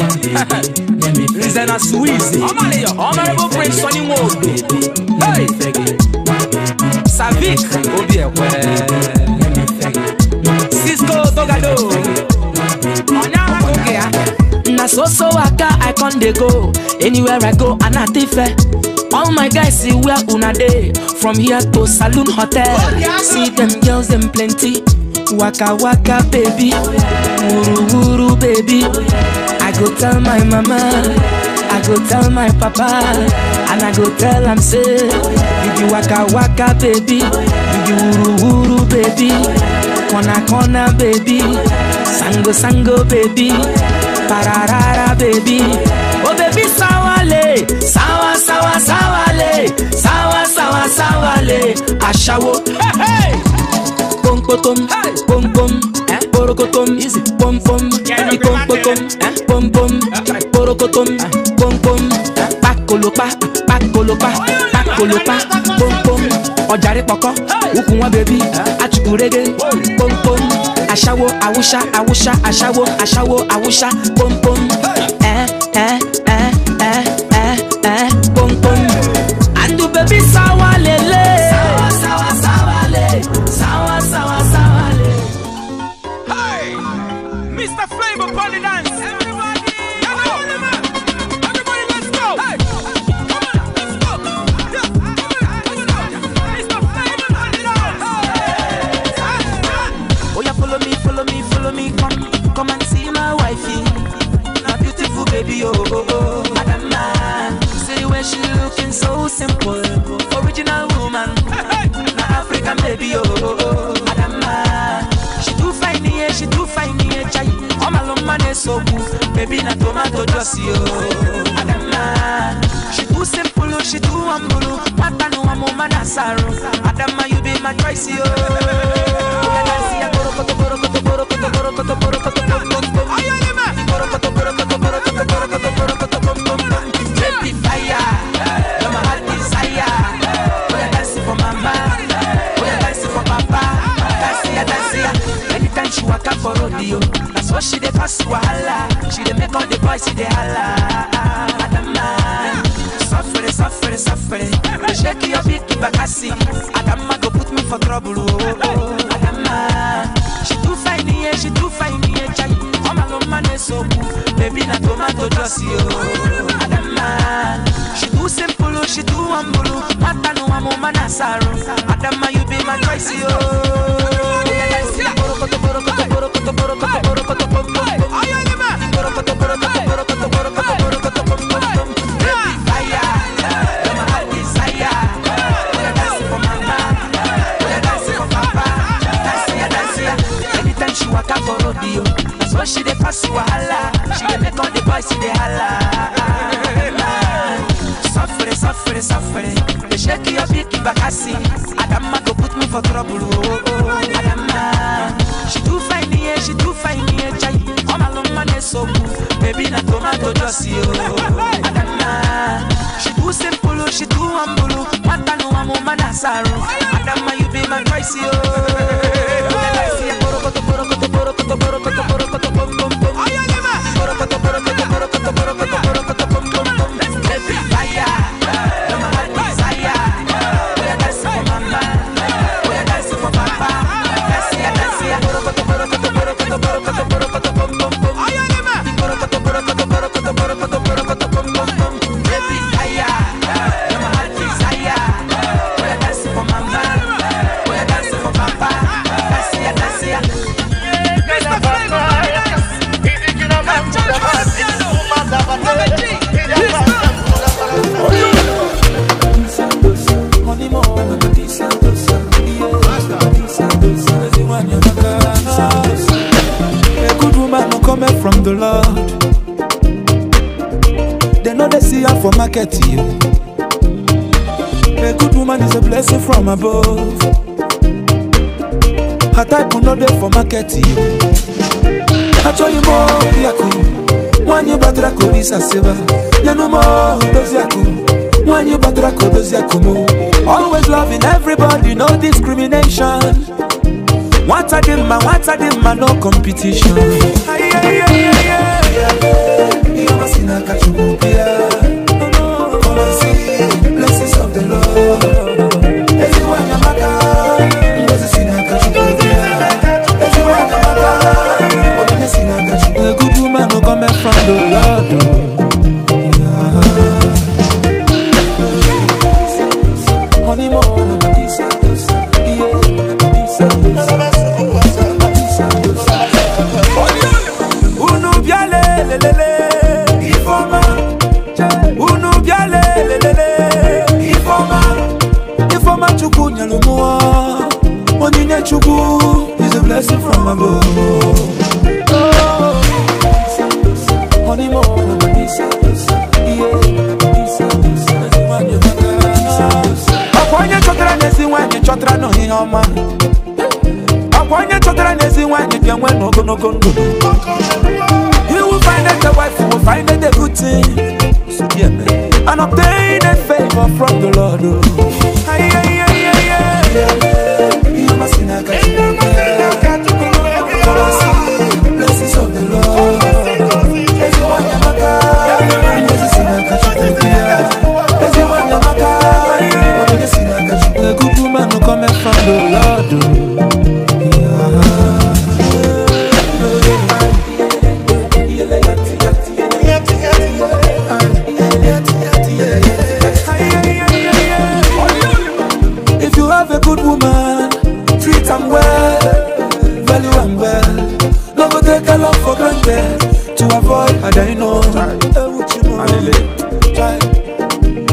Zena Suizi, Honorable Prince Sonny Wode. Hey! Savik, Obi Ekwe. con dey go anywhere i go anatife eh. all my guys see where una day from here to saloon hotel see them girls them plenty waka waka baby wuru wuru baby i go tell my mama i go tell my papa and i go tell am say you waka waka baby you be wuru wuru baby kona kona baby sango sango baby. tararara baby oh baby sawale sawa sawa sawale sawa sawa sawale Pom pom, pompom porokokom pom pom, pompom pom pom. pakolopa pakolopa pakolopa pom. ọjàre pọkọ poko, wọn baby achukurege aṣáwó awúṣá awúṣá aṣáwó aṣáwó awúṣá pọ́npọ́. pussy, Adama, she too simple, she too humble. Matano, I'm a man, Adama, you be my choice, yo. above her type no dey for market achọghị m obiakụ nwaanyị batara ka obisa sịba nyenu m odoziakụ nwaanyị batara ka odoziakụ m always loving everybody no discrimination nwata dị mma nwata dị mma no competition ihe ihe ihe ihe ihe ihe ihe ihe ihe ihe ihe ihe To avoid, I don't know.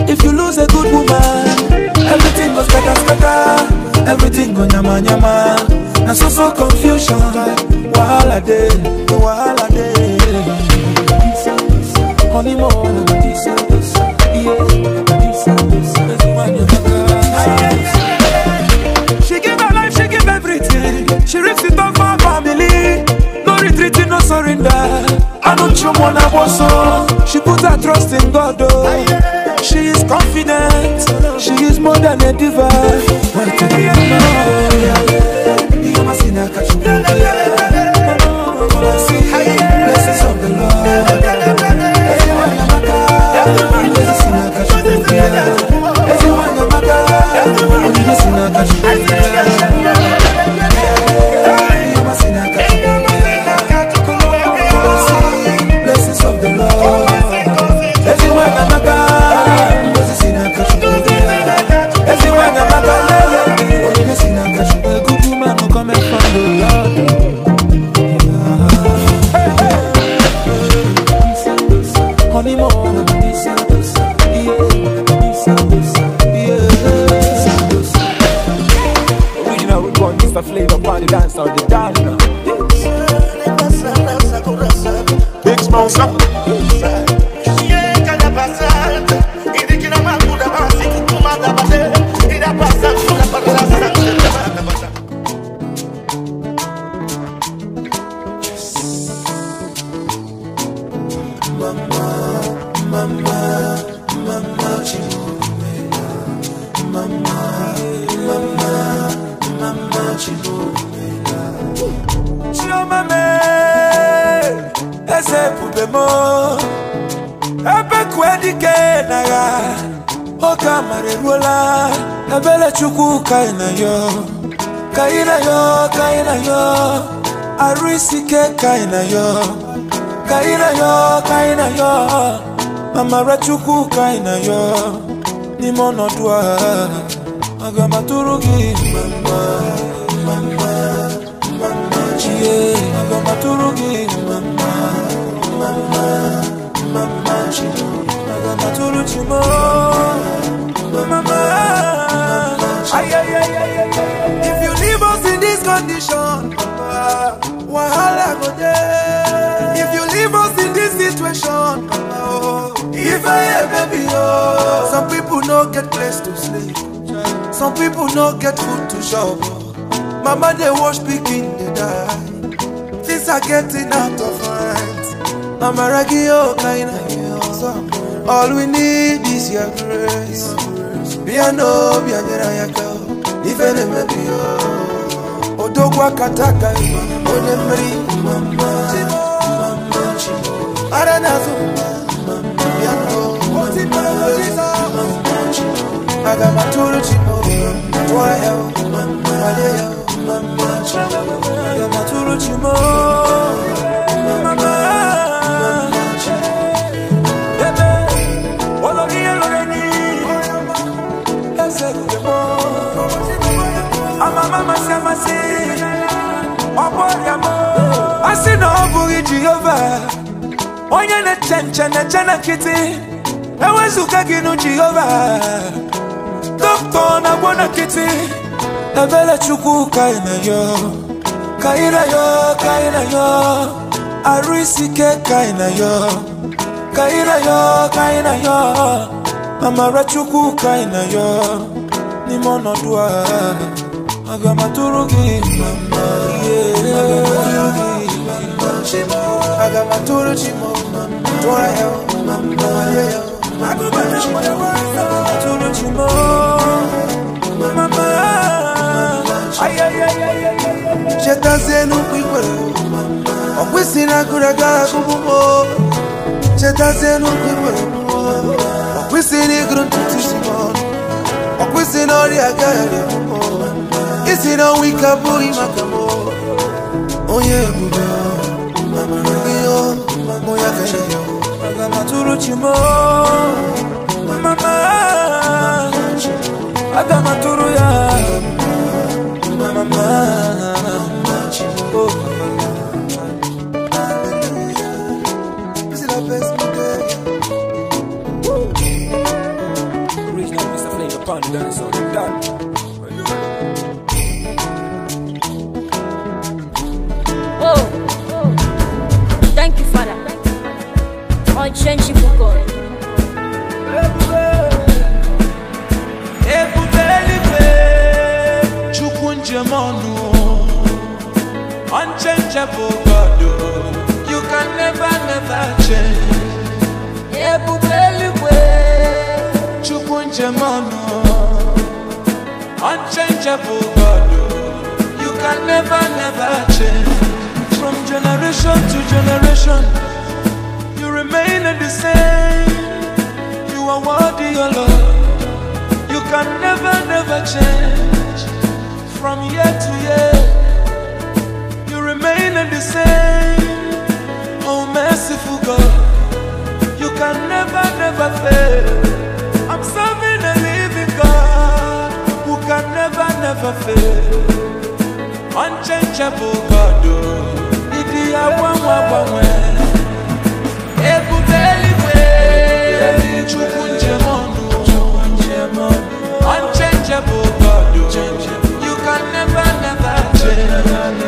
If you lose a good woman, everything goes better, better. Everything go nyama nyama. And so so confusion. Wahala day, wahala day. Honeymoon, yeah. She gave her life, she gave everything. She ripped it off. I don't show one She put her trust in God, oh. She is confident. She is more than a diva. But know. You catch you. Blessings of the Lord. kaina yo kaina yo kaina yo mamara chukwu kaina yo aga mama mama mama chie aga m mama mama mama chi aga chimo mama ay ay ay ay if you leave us in this condition wahala go dey. If you leave us in this situation, oh, if I ever be oh. Some people no get place to sleep, some people no get food to shop. Mama they wash pikin dey die, things are getting out of hand. Mama ragi oh kaina yo, oh. all we need is your grace. Be a no, be a girl, if I am be oh. Odogwa kataka yo onemri aranazo my chimoge my waleyo agamatulu chimoge onye na-eche na-eche na nkịtị ewezụga gị nụ jehova dọkịta na-agwọ na nkịtị ebere chukwu ka ị na-ayọ ka ị na-ayọ ka ị na-ayọ arụ isi ike ka ị na-ayọ ka ị na-ayọ ka ị na-ayọ amara chukwu ka ị na-ayọ n'ime ọnọdụ a aga m atụrụ gị mama yeah. I got my tour to mama, tour hell, mama, yeah. I got my tour to mama, tour to mama, mama. Ay ay ay ay ay. Já tá sendo quiquero, a piscina cura cara com bobo. Já tá sendo quiquero, a piscina grunto tishimon, a piscina olha Oh yeah, mamu ya kenyo Agama turu chimo Mama Agama turu ya Mama Oh Panda, so untouchable God, you can never, never change. Ebubeliwe, chukunjemono, unchangeable God, oh. you can never, never change. From generation to generation, you remain the same. You are worthy, your Lord. You can never, never change. From year to year. Oh, merciful God, you can never, never fail. I'm serving a living God who can never, never fail. Unchangeable God, oh, idia wa wa wa wa. Ebubeli we, chukunje mono, unchangeable God, oh, you can never, never change.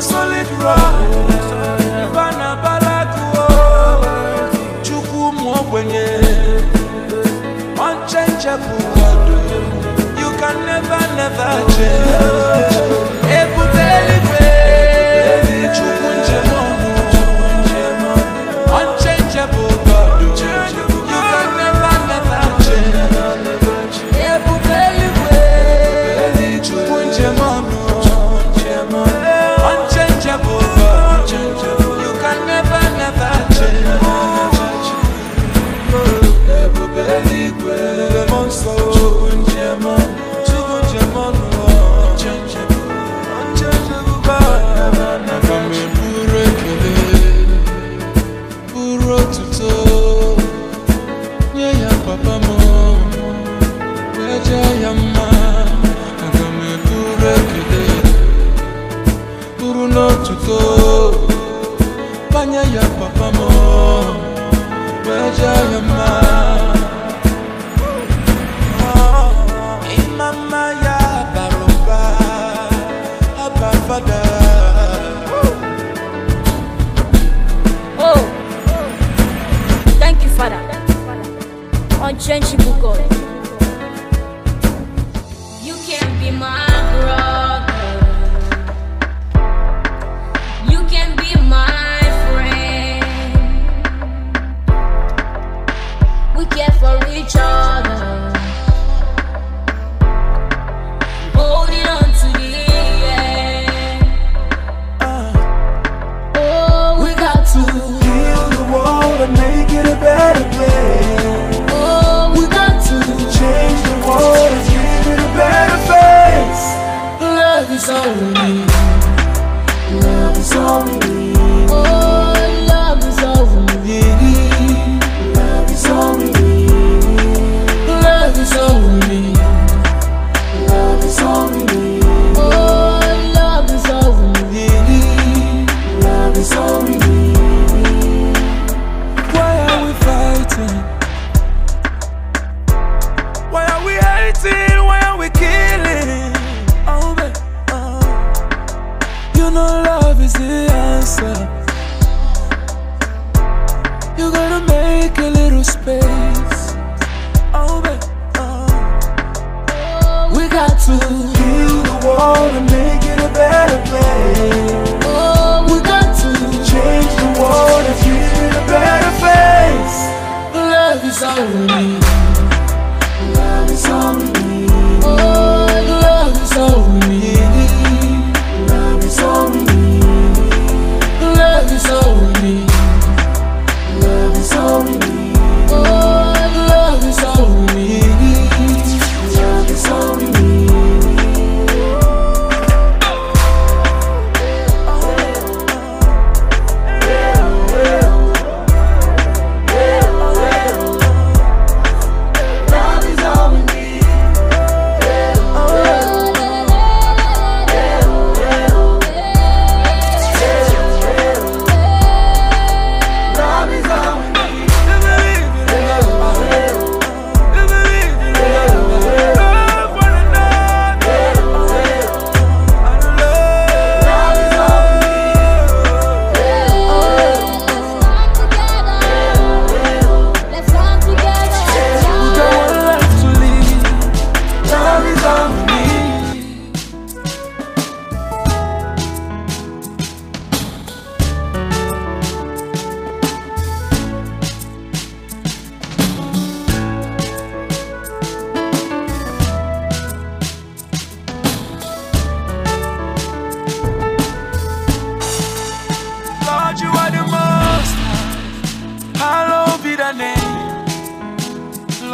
solid rock. You can never, never change.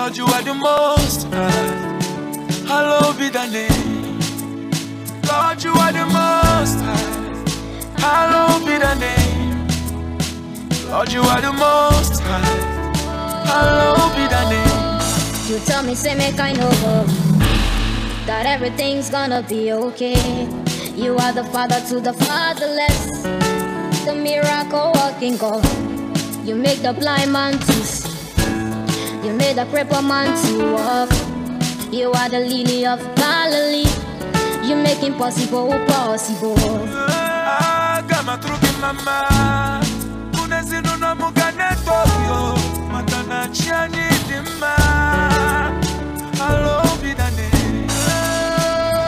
Lord, you are the most high. Hallowed be thy name. Lord, you are the most high. Hallowed be thy name. Lord, you are the most high. Hallowed be thy name. You tell me, say, make I know that everything's gonna be okay. You are the father to the fatherless, the miracle walking God. You make the blind man to see. You made a crippled man to walk. You are the lily of Galilee. You make impossible possible. Kama truki mama, unezinuna mugane tokyo, matana chiani dima, alo binane.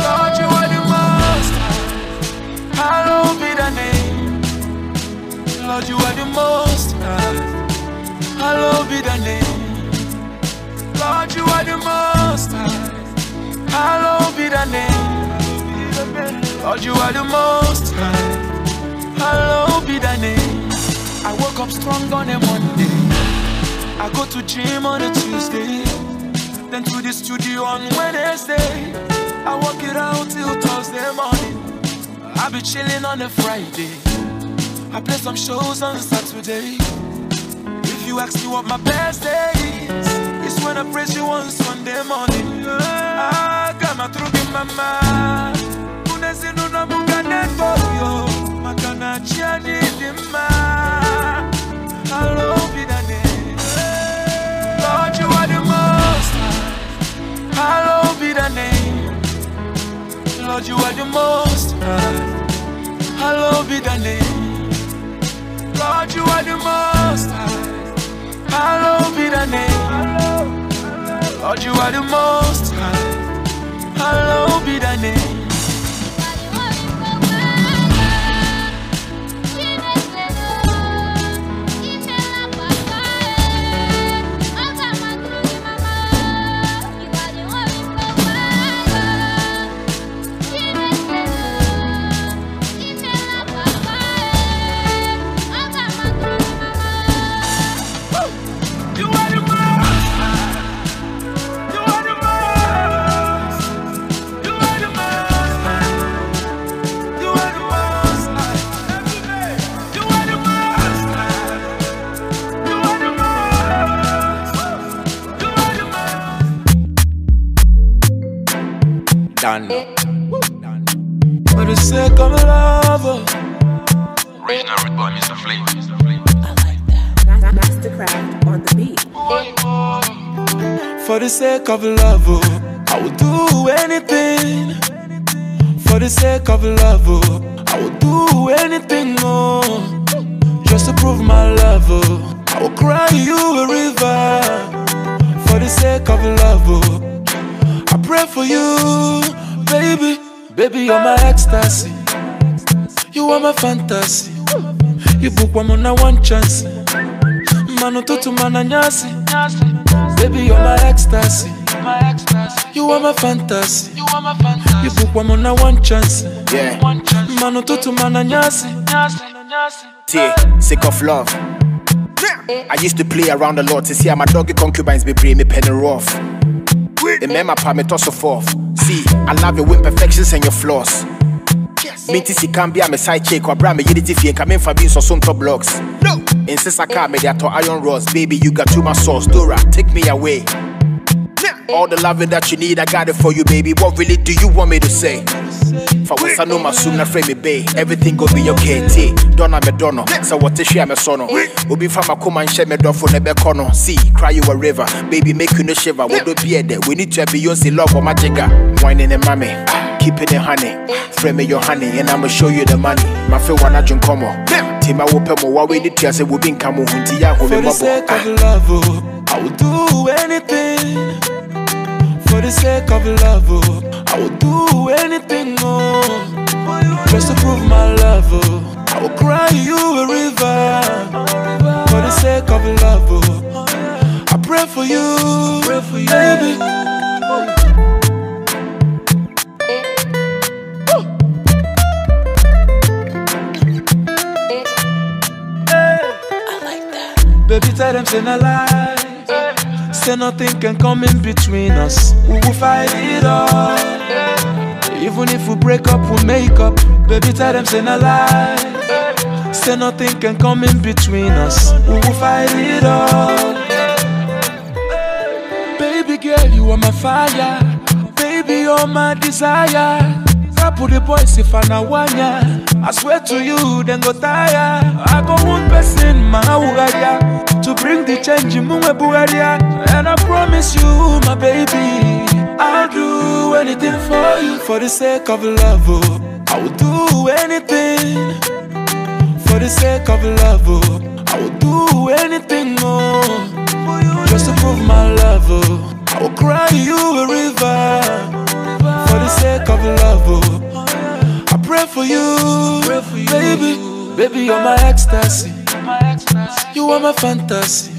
Lord, you are the master, alo binane. Lord, you are the most high, alo binane you are the most high. Hallowed be thy name. Lord, you are the most high. Hallowed be thy name. I woke up strong on a Monday. I go to gym on a Tuesday. Then to the studio on Wednesday. I work it out till Thursday morning. I be chilling on a Friday. I play some shows on Saturday. If you ask me what my best day is when I praise you wants Sunday morning Ah, kama My mama Unezinuna munga nefoyo Makana chiani dima Hello, bidane Lord, you are the most high Lord, you are the most high Hello, name. Lord, you are the most high Hallowed be thy name. Lord, you are the most high. Hallowed be thy name. done. For the sake of love. Original with boy, Mr. Flame. I like that. Mastercraft on the beat. For the sake of love, oh, I will do anything. For the sake of love, oh, I will do anything, oh, just to prove my love. Oh, I will cry you a river for the sake of love. Oh, pray for you, baby. Baby, you're my ecstasy. You are my fantasy. You book woman I one chance. Mano tutu nyasi. Baby, you're my ecstasy. You are my fantasy. You book woman I one chance. Yeah. Mano tutu mananyasi. T, sick of love. I used to play around a lot to see how my doggy concubines be bring me penny rough in Remember, pa me toss forth. See, I love your imperfections and your flaws. Minti si can be a me side check or bra me unity fee and come in for being so soon blocks. No. In Sisaka, eh. me to iron rods. Baby, you got too much sauce. Dora, take me away. All the loving that you need, I got it for you, baby. What really do you want me to say? na frame me bay. Everything go be okay. T. Donna me dono. So what is she am a sono? me See, cry you a river. Baby make you no shiver. Wo do be there. We need to be your love or magica. Ah. Wine in the mommy. Keeping it honey. Frame me your honey and I'ma show you the money. My feel wanna drink on. Tima wo pe mo wa we need to say in been ah. oh, I will do anything for the sake of love, oh. I would do anything, oh, just to prove my love, oh. I would cry you a river for the sake of love, oh. I pray for you, pray for you, baby. Baby, tell them say no lie Say nothing can come in between us. We will fight it all. Even if we break up, we make up. Baby, tell them say no lie. Say nothing can come in between us. We will fight it all. Baby girl, you are my fire. Baby, you're my desire. Couple the boys if I na wanya. I swear to you, then go tire. I go one person, my ugaria, to bring the change in Bugaria. And I promise you, my baby, I'll do anything for you for the sake of love. Oh. I will do anything for the sake of love. Oh. I will do anything, oh, just to prove my love. Oh. I will cry you a river for the sake of love. Oh pray for you, pray for you. baby. Baby, you're my ecstasy. You're my ecstasy. You are my fantasy.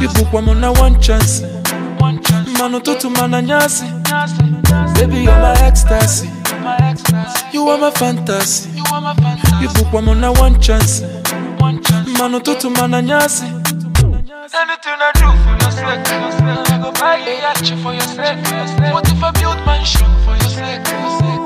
You book one on one chance. One chance. Mano tutu mana nyasi. Baby, you're my ecstasy. You're my fantasy. You book one on one chance. One chance. Mano tutu mana nyasi. Anything I do for your sake, I go buy a yacht for your sake. What if I build mansion for your sake?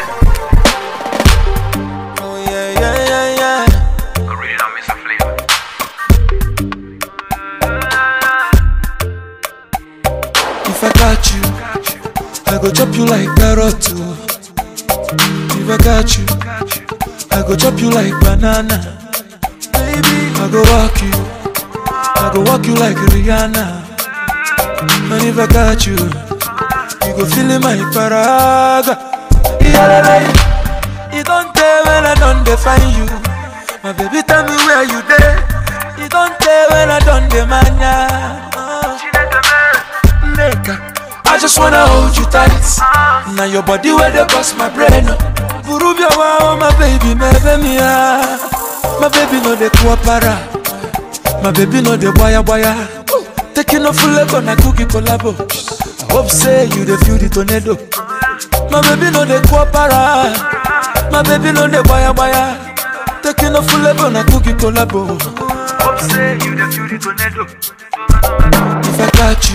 I go chop you like carrot oh. If I catch you I go chop you like banana Baby I go walk you I go walk you like Rihanna And if I catch you You go feel my paraga Yeah, You don't tell when I don't define you My baby tell me where you there You don't tell when I don't demand ya uh. Make Nigga I just wanna hold you tight. Now your body where they bust my brain. Burubia wow, oh, my baby, my baby, ah. my baby no de kuapara. My baby no de waya waya. Taking off full leg on a cookie collabo. I hope say you the feel the tornado. My baby no de kuapara. My baby no de waya waya. Taking off full leg on a cookie collabo. I hope say you the feel the tornado. If I catch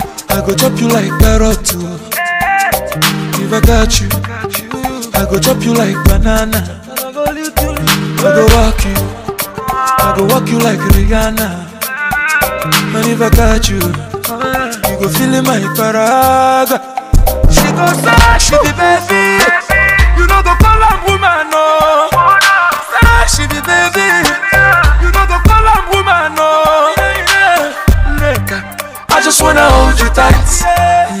you. I go chop you like carrot too. Oh. If I got you, I go chop you like banana. I go walk you, I go walk you like Rihanna. And if I got you, you go feel my paraga. She go suck, she be baby. You know the just wanna hold you tight.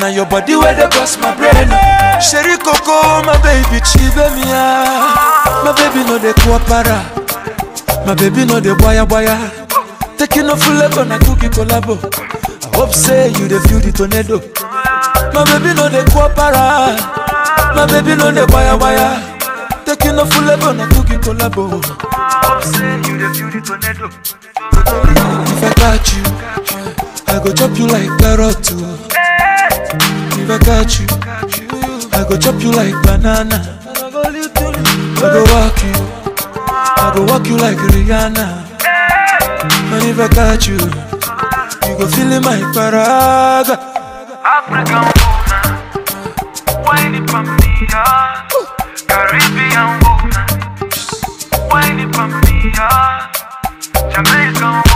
Now your body where they bust my brain. Sherry Coco, my baby, chive me My baby no the kuapara. My baby no the boya boya. Taking a full level na cookie collabo. I hope say you the feel the tornado. My baby no the kuapara. My baby no the boya boya. Taking a full level na cookie collabo. I hope say you the feel the tornado. If I catch you. I go chop you like carrot too. Oh. If I catch you, I go chop you like banana. I go walk you, I go walk you like Rihanna. And if I catch you, you go feel in my paraga. African woman, wine it for me, yeah. Caribbean woman, wine it for me, yeah. Jamaican woman.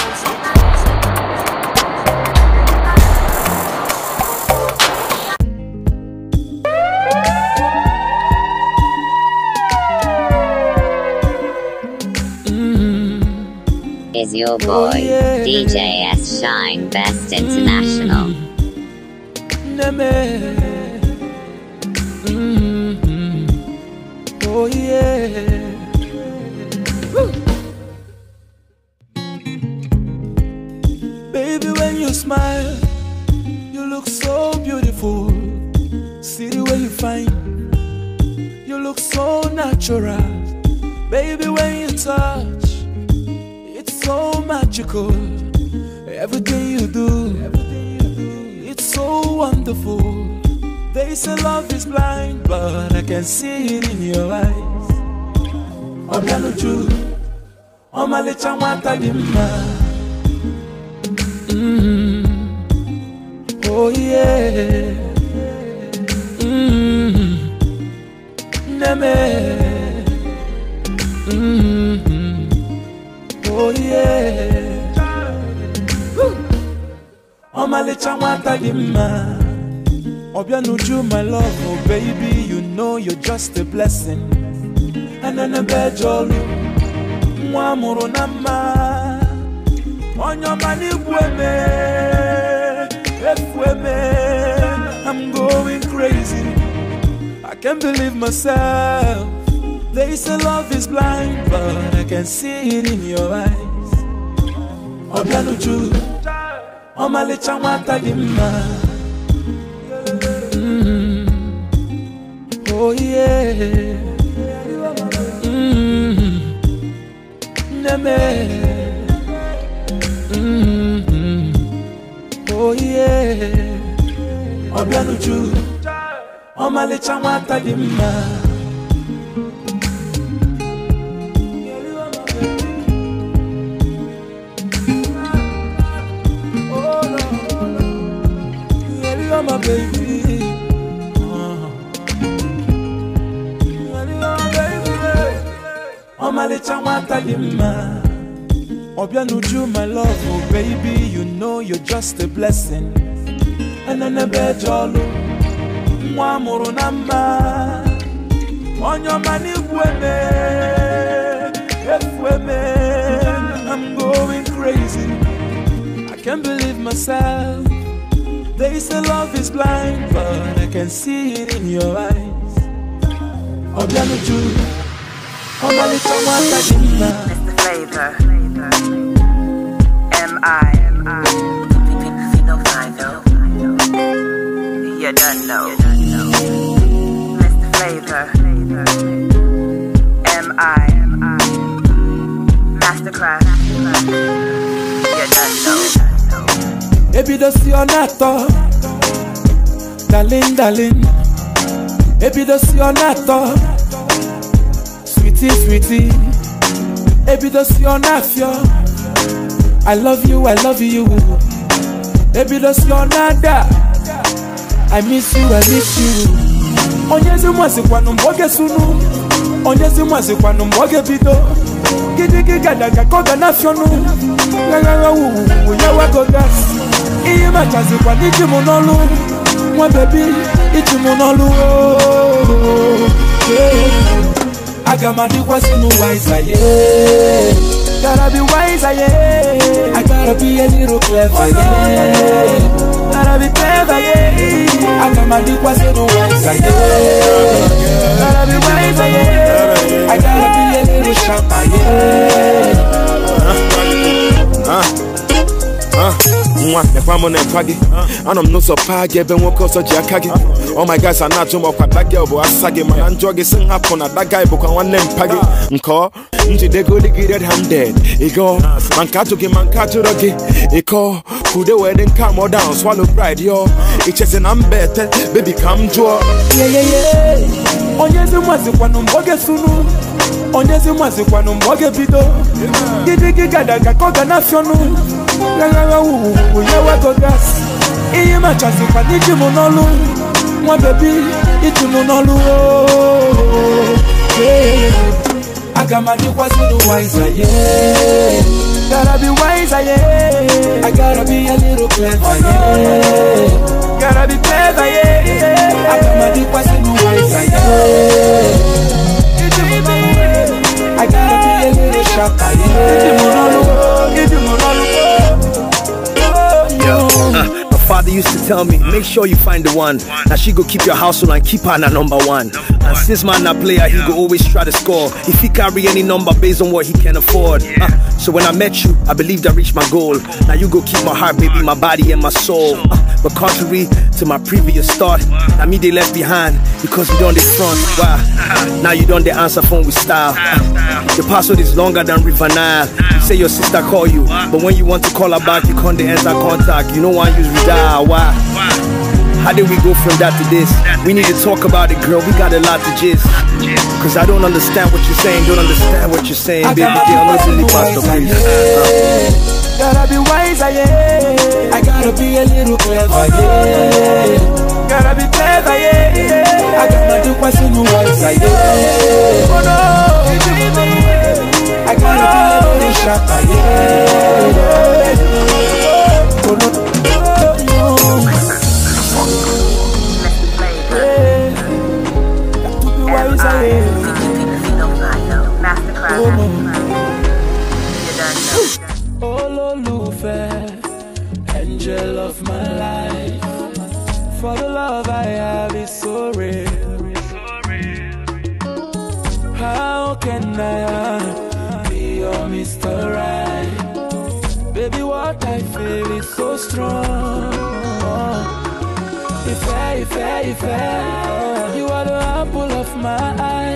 is your boy, oh, yeah. DJ S Shine Best International. mm Oh yeah. Baby, when you smile, you look so beautiful. See the way you find, you look so natural. Baby, when you touch magical. Everything you do, it's so wonderful. They say love is blind, but I can see it in your eyes. Obianuju, ọmalịcha nwata dị mma. Mm-hmm. Oh yeah. Mm-hmm. Neme. oh yeah ọmalịcha nwata gị mma ọbịa n'uju my love oh baby you know you're just a blessing enenebe eje ọlụ nwa amụrụ na mma onye ọma n'igwu eme efu I'm going crazy I can't believe myself they say love is blind, but I can see it in your eyes. Obianuju, ọmalịcha nwata dị mm-hmm. Oh yeah. Mm-hmm. Mm-hmm. Oh yeah. Obianuju, ọmalịcha nwata dị baby. Uh-huh. my love, oh baby, you know you're just a blessing. And then a bed, nwa mụrụ na mma onye ọma n'igwe I'm going crazy I can't believe myself they say love is blind, but I can see it in your eyes. Obianuju, Omalicha Mwakadimba. Mr. Flavor, M.I. You don't know. Mr. Flavor, M.I. Masterclass. ebido si ọ na darling darling ebido si ọ na sweetie sweetie ebido si ọ na-afịọ I love you I love you ebido si ọ na I miss you I miss you onyezi mwazikwanụ mgbe oge sunu onyezi mwazikwanụ mgbe oge bido gidigigadaga ka ọ ga na-afịọnụ ghaghaghawuwuwu ya wago iye machasi kwa n'iji mụ n'ọlụ nwa bebi iji mụ n'ọlụ aga m adịkwasị n'ụwa ịzaye gotta be wise, yeah. I gotta be a little clever, yeah. Gotta be clever, yeah. I got my dick was in the wise, yeah. Gotta be wise, yeah. I gotta be a little sharper, yeah. nwa mekwa m na-ekwa gị anọ m n'ụzọ paa gị ebe nwoke ọzọ ji aka gị ọ oh my guys a na-ajụ m ọkwa dagị bụ asa gị mana njọ gị si nhapụ na daga bụkwa nwanne m mpa gị nke ọ njidegodi gị red handed ịgọ ma nke atụ gị, ma nke ajụrọ gị ịkọ ka wee dị nke amọ down swallow pride yo ichezi na mba ete bebi ka m jụọ onye ezi mazikwanụ mgbe ọ sunu, onye ezi mazikwanụ mgbe ọ bido, ebido gidi gị gada ka ọ ga na-afịọnụ lalawa wuwuwu yawa gogas I machasi kwani jimu n'olu nwa bebi ijimu n'olu aga m adịkwasị n'ụwa ịzaye gara bi wise aye I gotta be a little clever yeah Gotta be clever yeah I got my deep wise and wise yeah Iti mo I gotta be a little sharper yeah Iti mo nolu Iti mo nolu father used to tell me, make sure you find the one. Now she go keep your household and keep her na number one. And since man a player, he go always try to score. If he carry any number based on what he can afford. Uh, so when I met you, I believed I reached my goal. Now you go keep my heart, baby, my body and my soul. Uh, but contrary to my previous thought, now me they left behind because we done the front. Wow. Now you done the answer phone with style. Uh, your password is longer than River Nile. You say your sister call you, but when you want to call her back, you can't answer contact. You know why you redial. Nah, why? How did we go from that to this? We need to talk about it, girl. We got a lot to gist. Cause I don't understand what you're saying. Don't understand what you're saying, baby. Girl, to Pastor, please. Uh. Gotta be wiser, yeah. I gotta be a little clever, yeah. Gotta be clever, yeah. I gotta do what's in the wiser, yeah. Oh no, I gotta be a little sharper, yeah. Oh no. Ololufe, angel of my life. For the love I have is so real. How can I be your Mr. Right? Baby, what I feel is so strong. If I, if I, if I, you are the apple of my eye.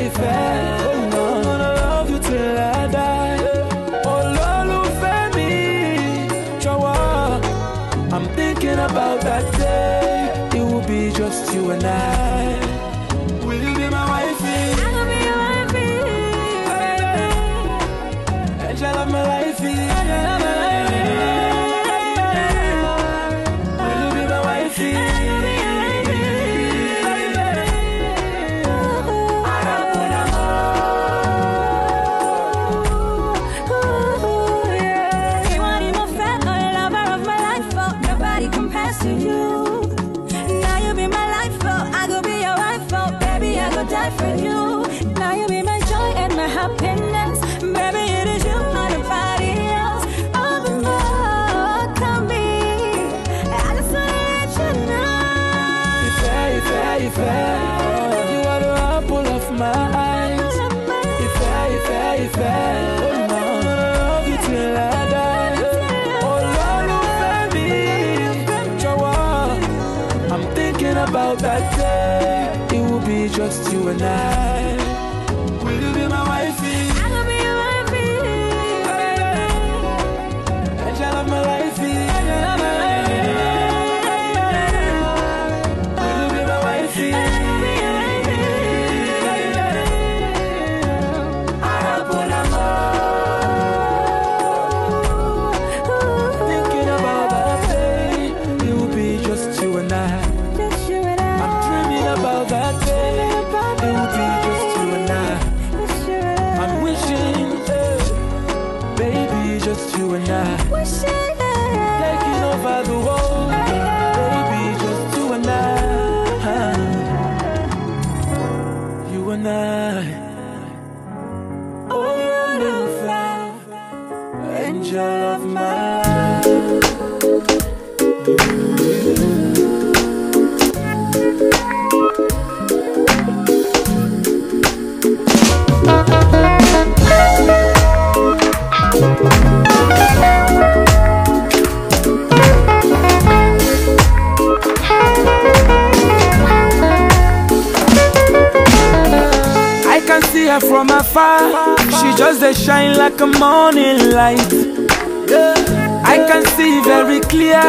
I oh I'm gonna love you till I die. oh Olólùfẹ́ mi, chawa. i I'm thinking about that day. It will be just you and I. tonight her from afar She just a shine like a morning light I can see very clear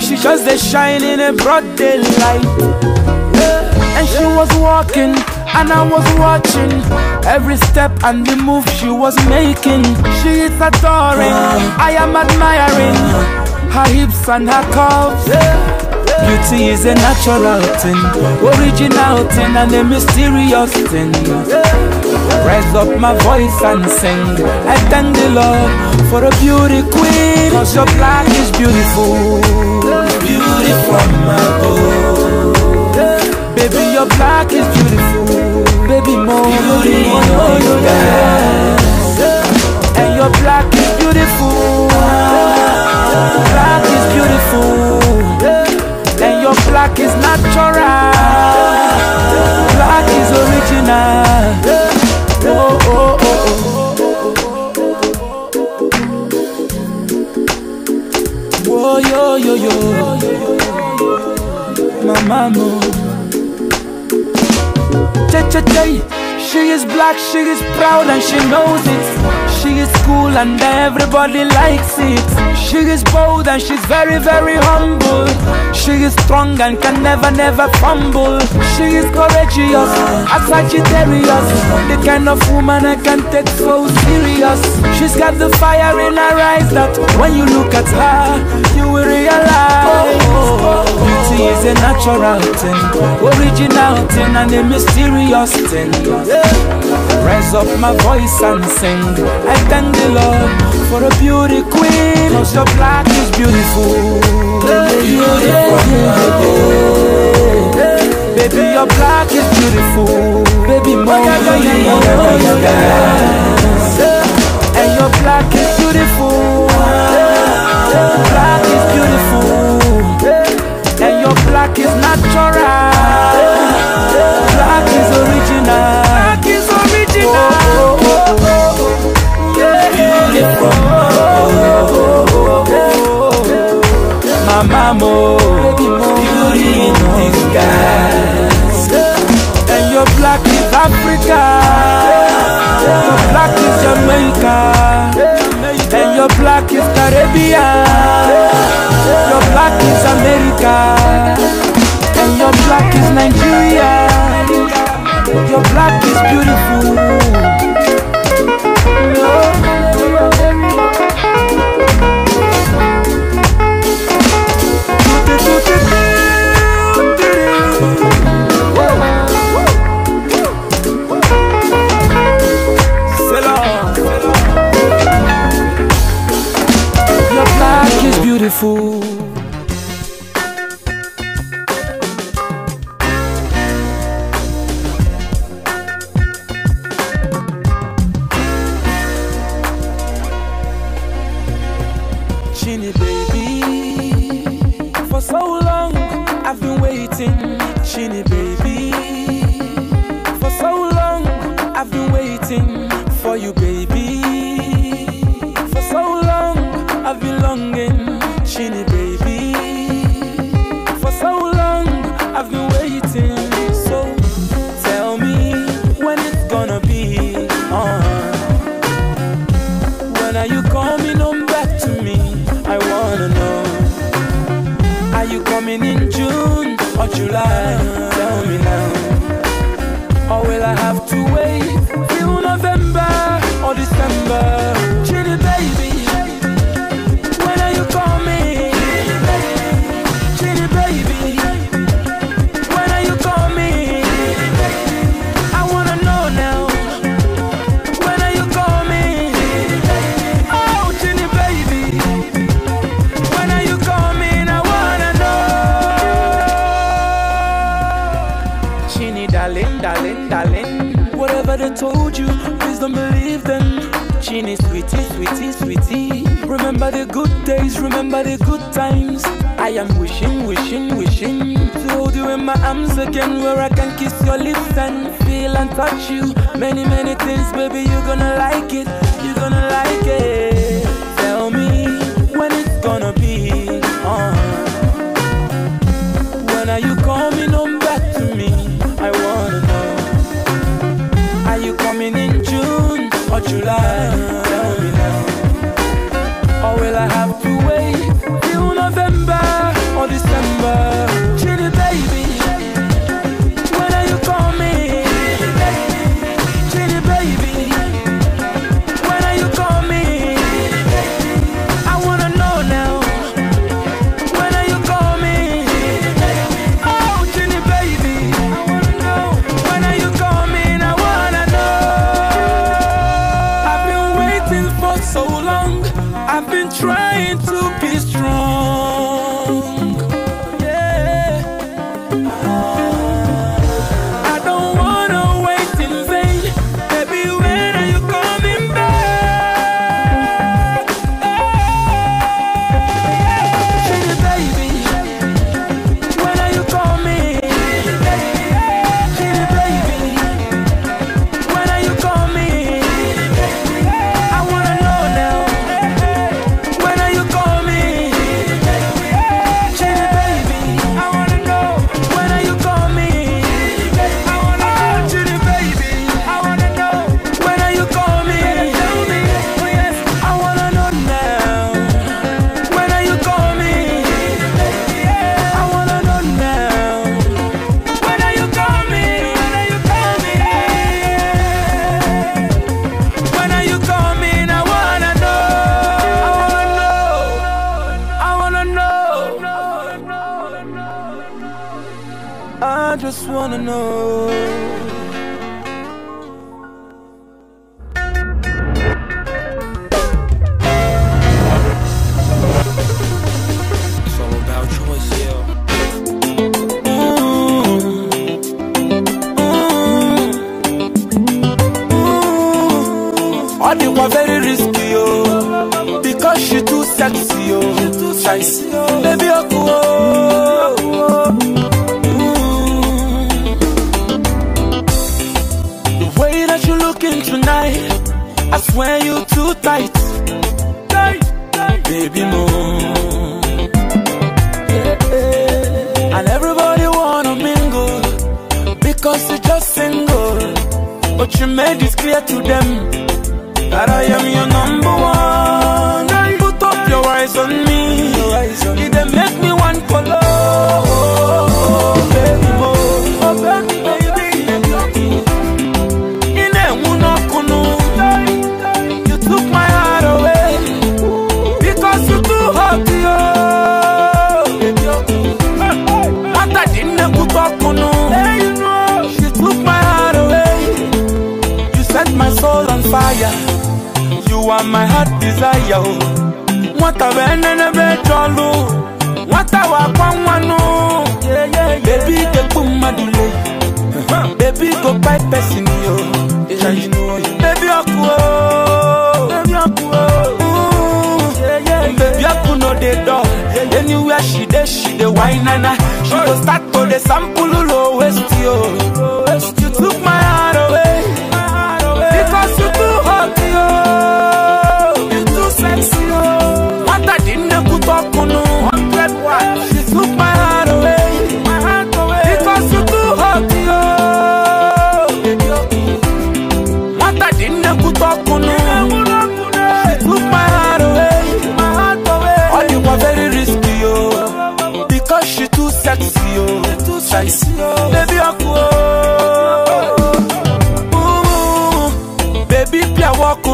She just a shine in a broad daylight And she was walking and I was watching Every step and the move she was making She is adoring, I am admiring Her hips and her curves Beauty is a natural thing Original thing and a mysterious thing Raise up my voice and sing I thank the Lord for a beauty queen Cause your black is beautiful Beauty from my boy Baby your black is beautiful Baby more Beauty more, more you got And your black is beautiful Black is beautiful And your black is natural Black is original oh, oh, oh, oh. Whoa, yo, yo, yo. My mama. Cha, cha, cha. She is black, she is proud, and she knows it. She is cool and everybody likes it She is bold and she's very very humble She is strong and can never never fumble She is courageous, a Sagittarius The kind of woman I can take so serious She's got the fire in her eyes that when you look at her You will realize Beauty is a natural thing, original thing and a mysterious sing. Raise up my voice and sing. I thank the Lord for a beauty queen. Cause your black is beautiful. Baby, your black is beautiful. Baby, more oh, And your black is beautiful. Black is beautiful. And your black is natural. Black is original. Black is original. Oh, oh, oh, oh. Yeah, beautiful. Oh, oh, oh, oh. Mama, Beauty in disguise. And your black is Africa. Your black is Jamaica. And your black is Caribbean. Your black is America. And your black is Nigeria Your black is beautiful Your black is beautiful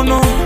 no.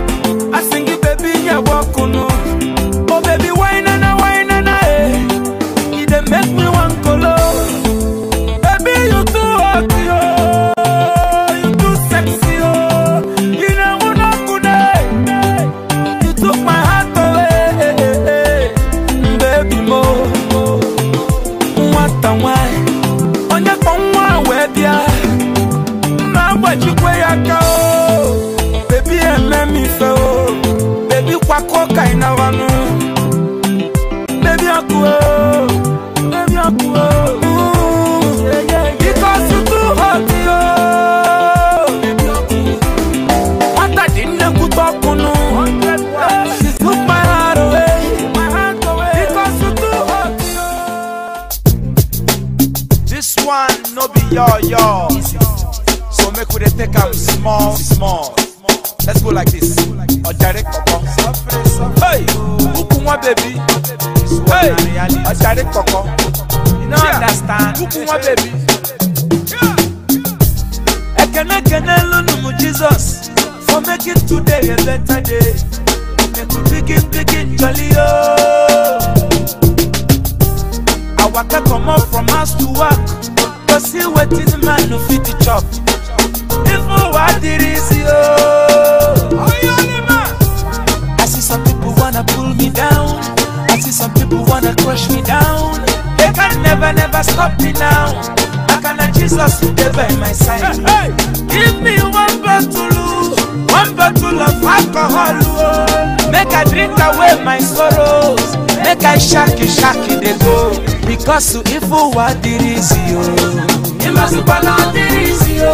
i shaki shaki dey go because if want ifu wa dirisi o. imasupana dirisi o.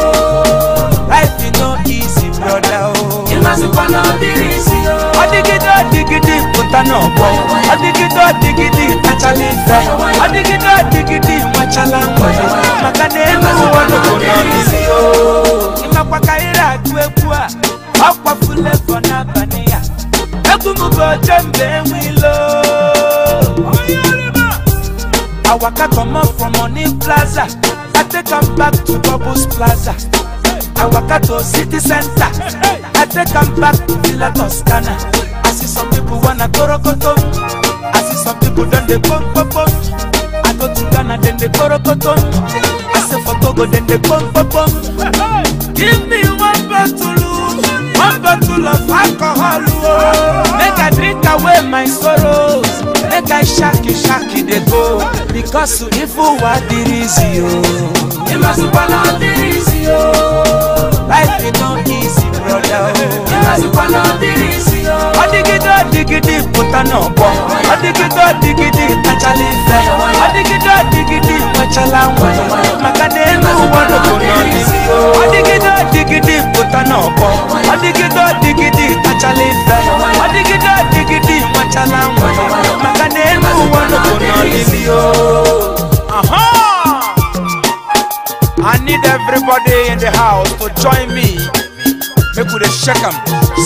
life is no easy brother. broda oh. o. imasupana dirisi o. ọdigidi ọdigidi dig it, bọ ọdigidi ọdigidi ntachala ife ọdigidi ọdigidi nwachala mgbe maka na elu ụwa n'obodo dig it, ịmakwaka ire agụ egwu a ọkwafule fọ n'abalị ya egwu m bụ oche mgbe enwe ilo. I walk waka comot from Money Plaza, I take am back to Bubbles Plaza. I walk waka to City Center, I take am back to Villa Toscana. I see some people wanna korokoto, I see some people don dey pom pom pom. I go to Ghana then dem dey korokoto, I say for Togo then dey pom pom pom. Give me one to lose, one bottle of alcohol, oh. make I drink away my sorrow. make i shaki shaki dey go because ifu wa dirizi o. ìmọ̀sùpọ̀lọ́ dirizi o. life oh. e no easy broda o. ìmọ̀sùpọ̀lọ́ dirizi o. ọ̀dìgídé ọ̀dìgídé ìpótá náà bọ̀ ọ̀dìgídé ọ̀dìgídé ìtàjálẹ̀ ìfẹ́ ọ̀dìgídé ọ̀dìgídé ìpọ̀chálá wọn. màkàdé inú wọn ló kò náà ní. ọ̀dìgídé ọ̀dìgídé kana ọkọ ọdịgide ọdịgide kachala ife ọdịgide ọdịgide nwachala nwa maka na elu ụwa nọbụ n'olili I need everybody in the house to join me. Make we shake them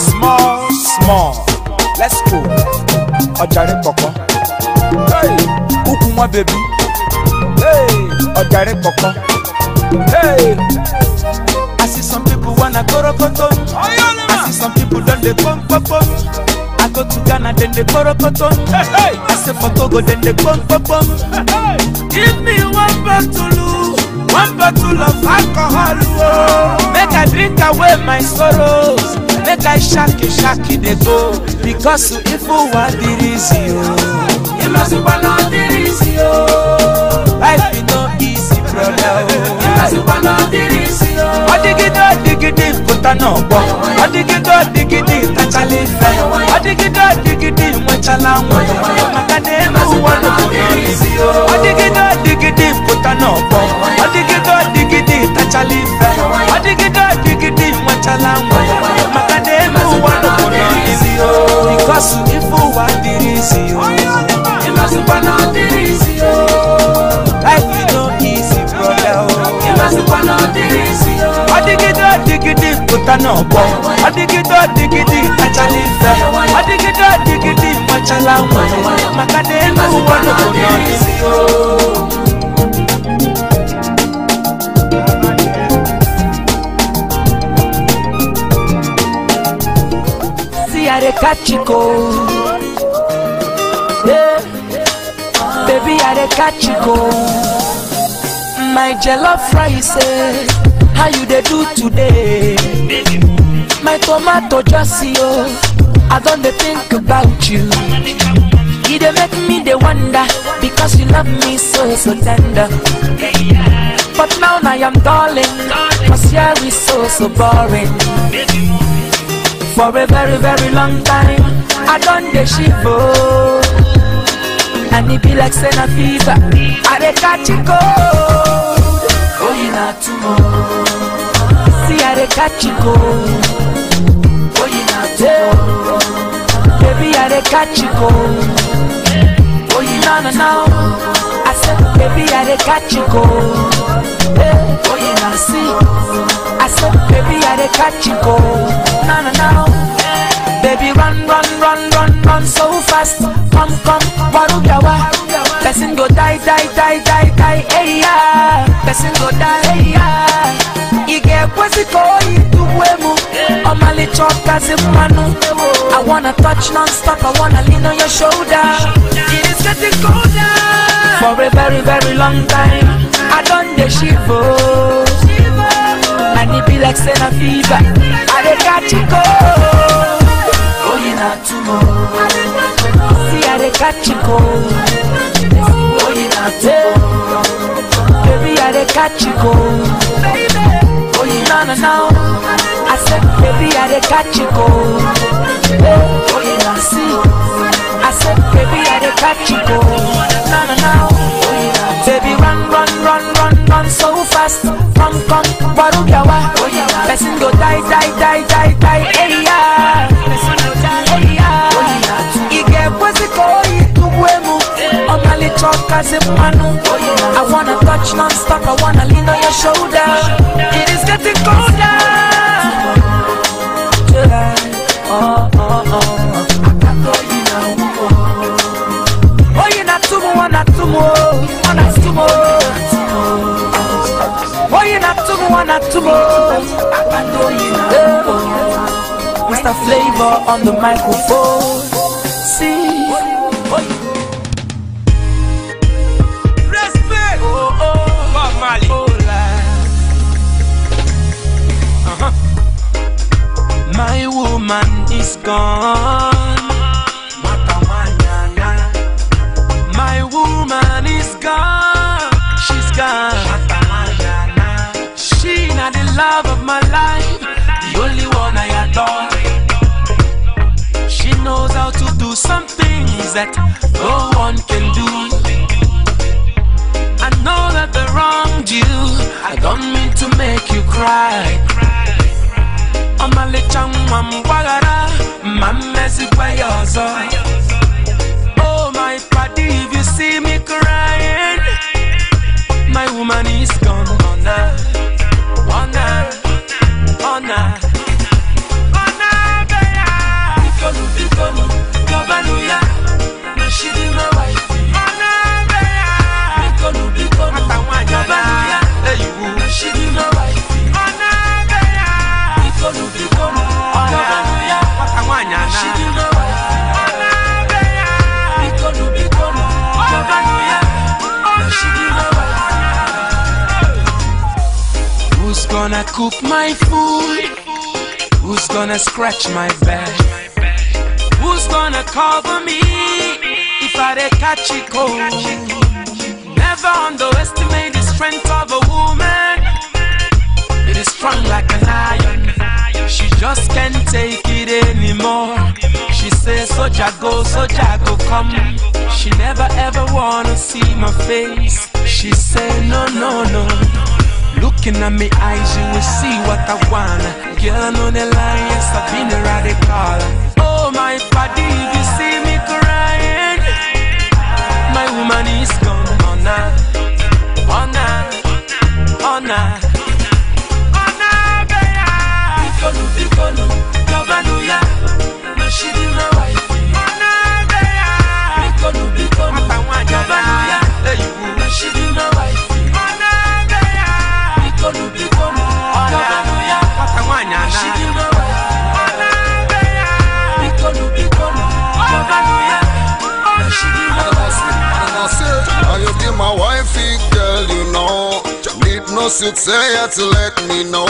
small, small. Let's go. Ọjàre kọ̀kọ́. Hey, kúkú wọn bèbí. Hey, ọjàre kọ̀kọ́. Hey. Ghana, Korokoton. I see some people done they pump, pump, pump. I go to Ghana, then they Korokoton. Hey, hey. I say for Togo, then they pump, pump, pump. Hey, hey. Give me one bottle, oh. one bottle of alcohol. Oh. Make I drink away my sorrows. Make I shaki shaki they go. Because if you want the reason, you must follow the reason. Life is no easy, brother. Oh. You must follow the reason. What do you do? tana gbọ ọdịgide ọdịgide tachala ife ọdịgide ọdịgide nwechala nwa maka na elu ụwa nụpụrụzi ọdịgide ọdịgide pụta n'ọgbọ ọdịgide ọdịgide Adigidi, ife ọdịgide ọdịgide nwechala nwa maka na elu ụwa nụpụrụzi bikọsụ ife ụwa dịrị izi ịmazikwana dịrị izi life you no easy brother o ịmazikwana dịrị izi ọdịgide ọdịgide tana bọ adigidọ digidi achalisa adigidọ digidi machala nwe maka na elu ụwa n'obodo n'isi o. Chico. Yeah. Baby, I dey catch you go. My Jello rice, eh? How you dey do today? my tomato just oh, I don't think about you. You they make me they wonder because you love me so so tender. But now I am darling, cause yeah we so so boring. For a very very long time, I don't the shivo. And it be like Sena fever, I dey catch it cold. you not tomorrow. See, I dey catch it cold. Baby, I dey catch you go. Oh, you know, no, no. I said, baby, I dey catch you go. Hey, oh, you know, see. I said, baby, I dey catch you go. No, no, no. Baby, run, run, run, run, run so fast. Come, come, Warugawa. Person go die, die, die, die, die, hey, yeah. Person go die, hey, yeah ị ga-ekwesị ka oyi tugwue m ọmalịcha ọkazi mmanụ I wanna touch non-stop, I wanna lean on your shoulder It is getting colder For a very very long time I don dey shivo And e be like say fever I oh, you catch cold you na tumo See I oh, you catch cold you na tumo Baby I you catch cold no, no, no. I said, baby, I did catch you, go. Hey, oh, yeah, see. I said, baby, I did catch you, go. No, no, no. Oh, baby, run, run, run, run, run so fast. Come, come, baru Oh, yeah. Person go die, die, die, die, die. Hey, yeah. Person go die, hey, yeah. Oh, yeah. Ige, what's it called? Itubuemu talk as if Manu. I wanna touch non-stop, I wanna lean on your shoulder. It is getting colder. July, oh, oh, oh. Oh, you're not too much, not too much, not too much. Oh, you're not too much, not too much. Mr. Flavor on the microphone. My woman is gone. My woman is gone. She's gone. She not the love of my life, the only one I adore. She knows how to do some things that no one can do. I know that the wronged you. I don't mean to make you cry. ọmalịcha nwa m gbaghara ma mmezikwa ya ọzọ oh my padi if you see me crying my woman is gone ọna ọna ọna ọna be ya bikonu bikonu gọbanụ ya na shiri mawa gonna cook my food? Who's gonna scratch my back? Who's gonna cover me if I dey catch it cold? Never underestimate the strength of a woman. It is strong like an iron. She just can't take it anymore. She says, "So jago, so jago, come. She never ever wanna see my face. She say, No, no, no. Looking at me eyes, you will see what I wanna. Girl, I know the line, yes, I've been a radical. Oh, my body, if you see me crying, my woman is Cause you say you to let me know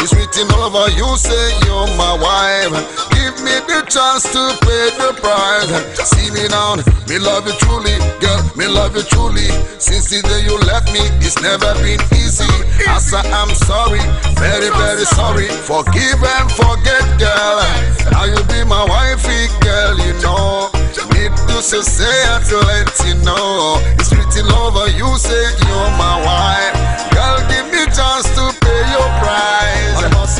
It's written all over you say you're my wife Give me the chance to pay the price See me now, me love you truly Girl, me love you truly Since the day you left me, it's never been easy say I am sorry, very very sorry Forgive and forget girl Now you be my wifey girl, you know Need to say, say to let you know It's written over you say you're my wife chance to pay your price.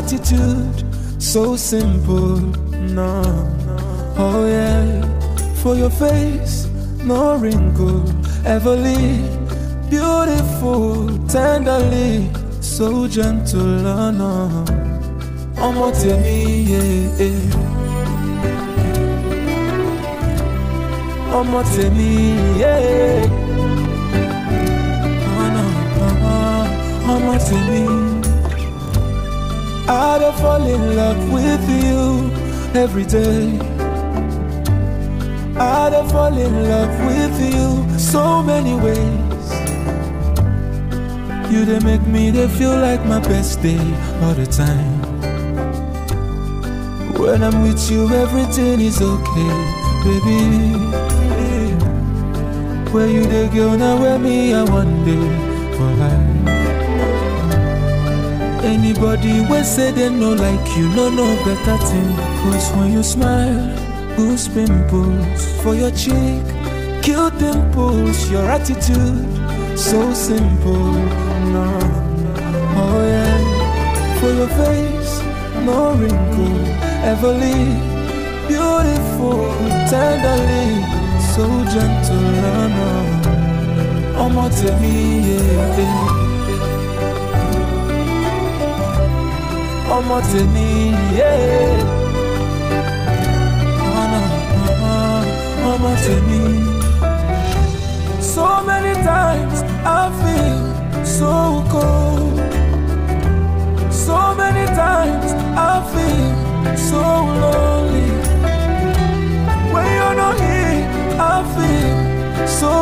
gratitude so simple no oh yeah for your face no wrinkle everly beautiful tenderly so gentle oh no ọmọ tèmi yeah, ọmọ tèmi yé ọmọ tèmi. I'd have fall in love with you every day. I'd have fall in love with you so many ways. You they make me they feel like my best day all the time. When I'm with you, everything is okay, baby. Where you the girl now? Where me? I wonder. Anybody when say they no like you, no no better thing. Cause when you smile, boost pimples for your cheek, kill dimples, your attitude, so simple. No, oh yeah, for your face, no wrinkle, everly beautiful, tenderly, so gentle. No, no, oh, my, tell ọmọ tèmi ọmọ tèmi. So many times I feel so cold. So many times I feel so lonely. When you're not here, I feel so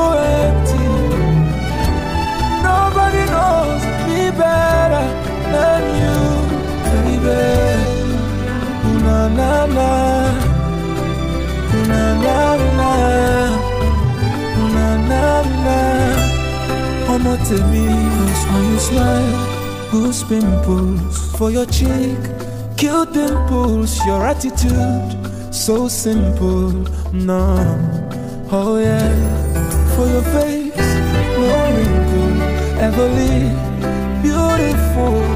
empty. Nobody knows me better than you baby. Na na na. Na na na. Na na na. Omo tèmi, cause when you smile, goose pimples for your cheek, cute dimples, your attitude so simple, no. Oh yeah, for your face, no wrinkle ever Beautiful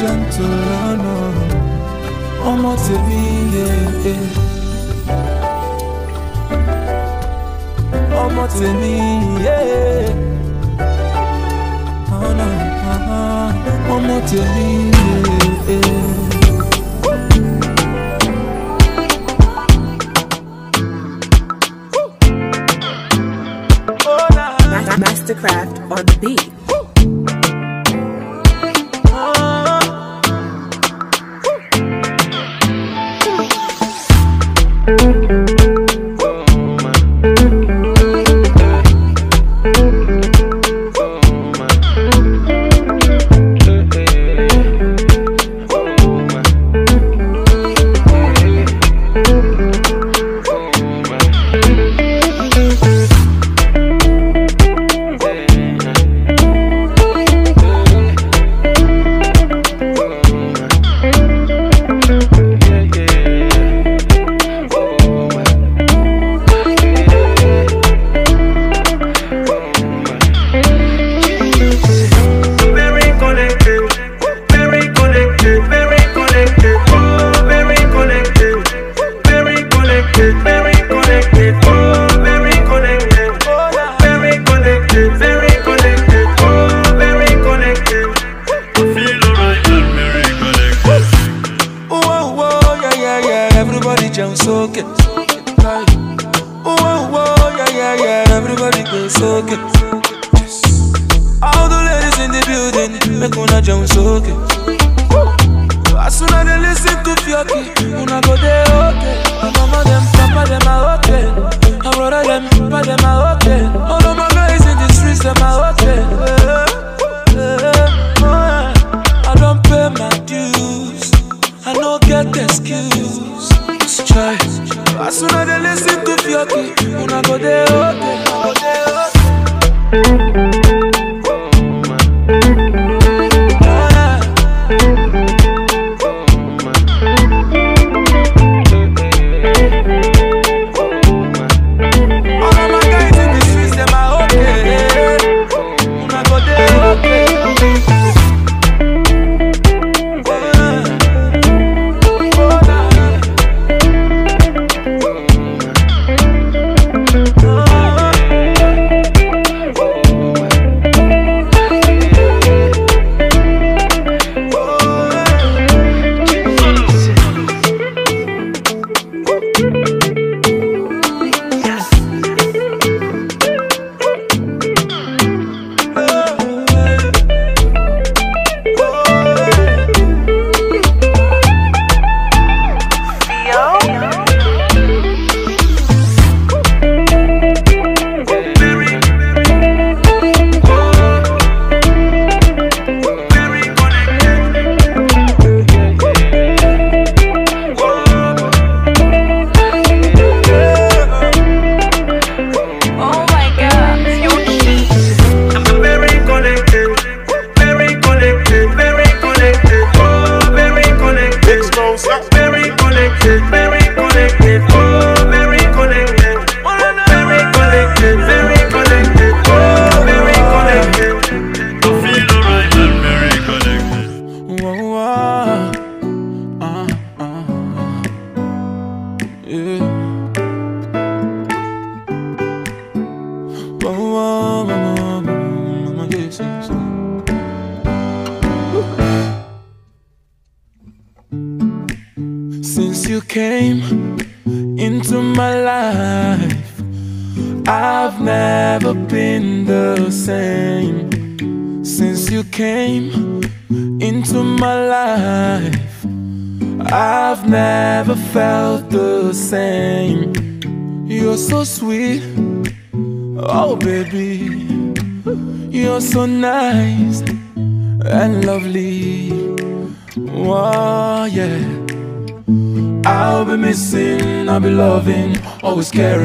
gentle lọ́nà ọmọ tèmi yẹ. ọmọ tèmi yẹ. ọ̀nà ọmọ tèmi yẹ.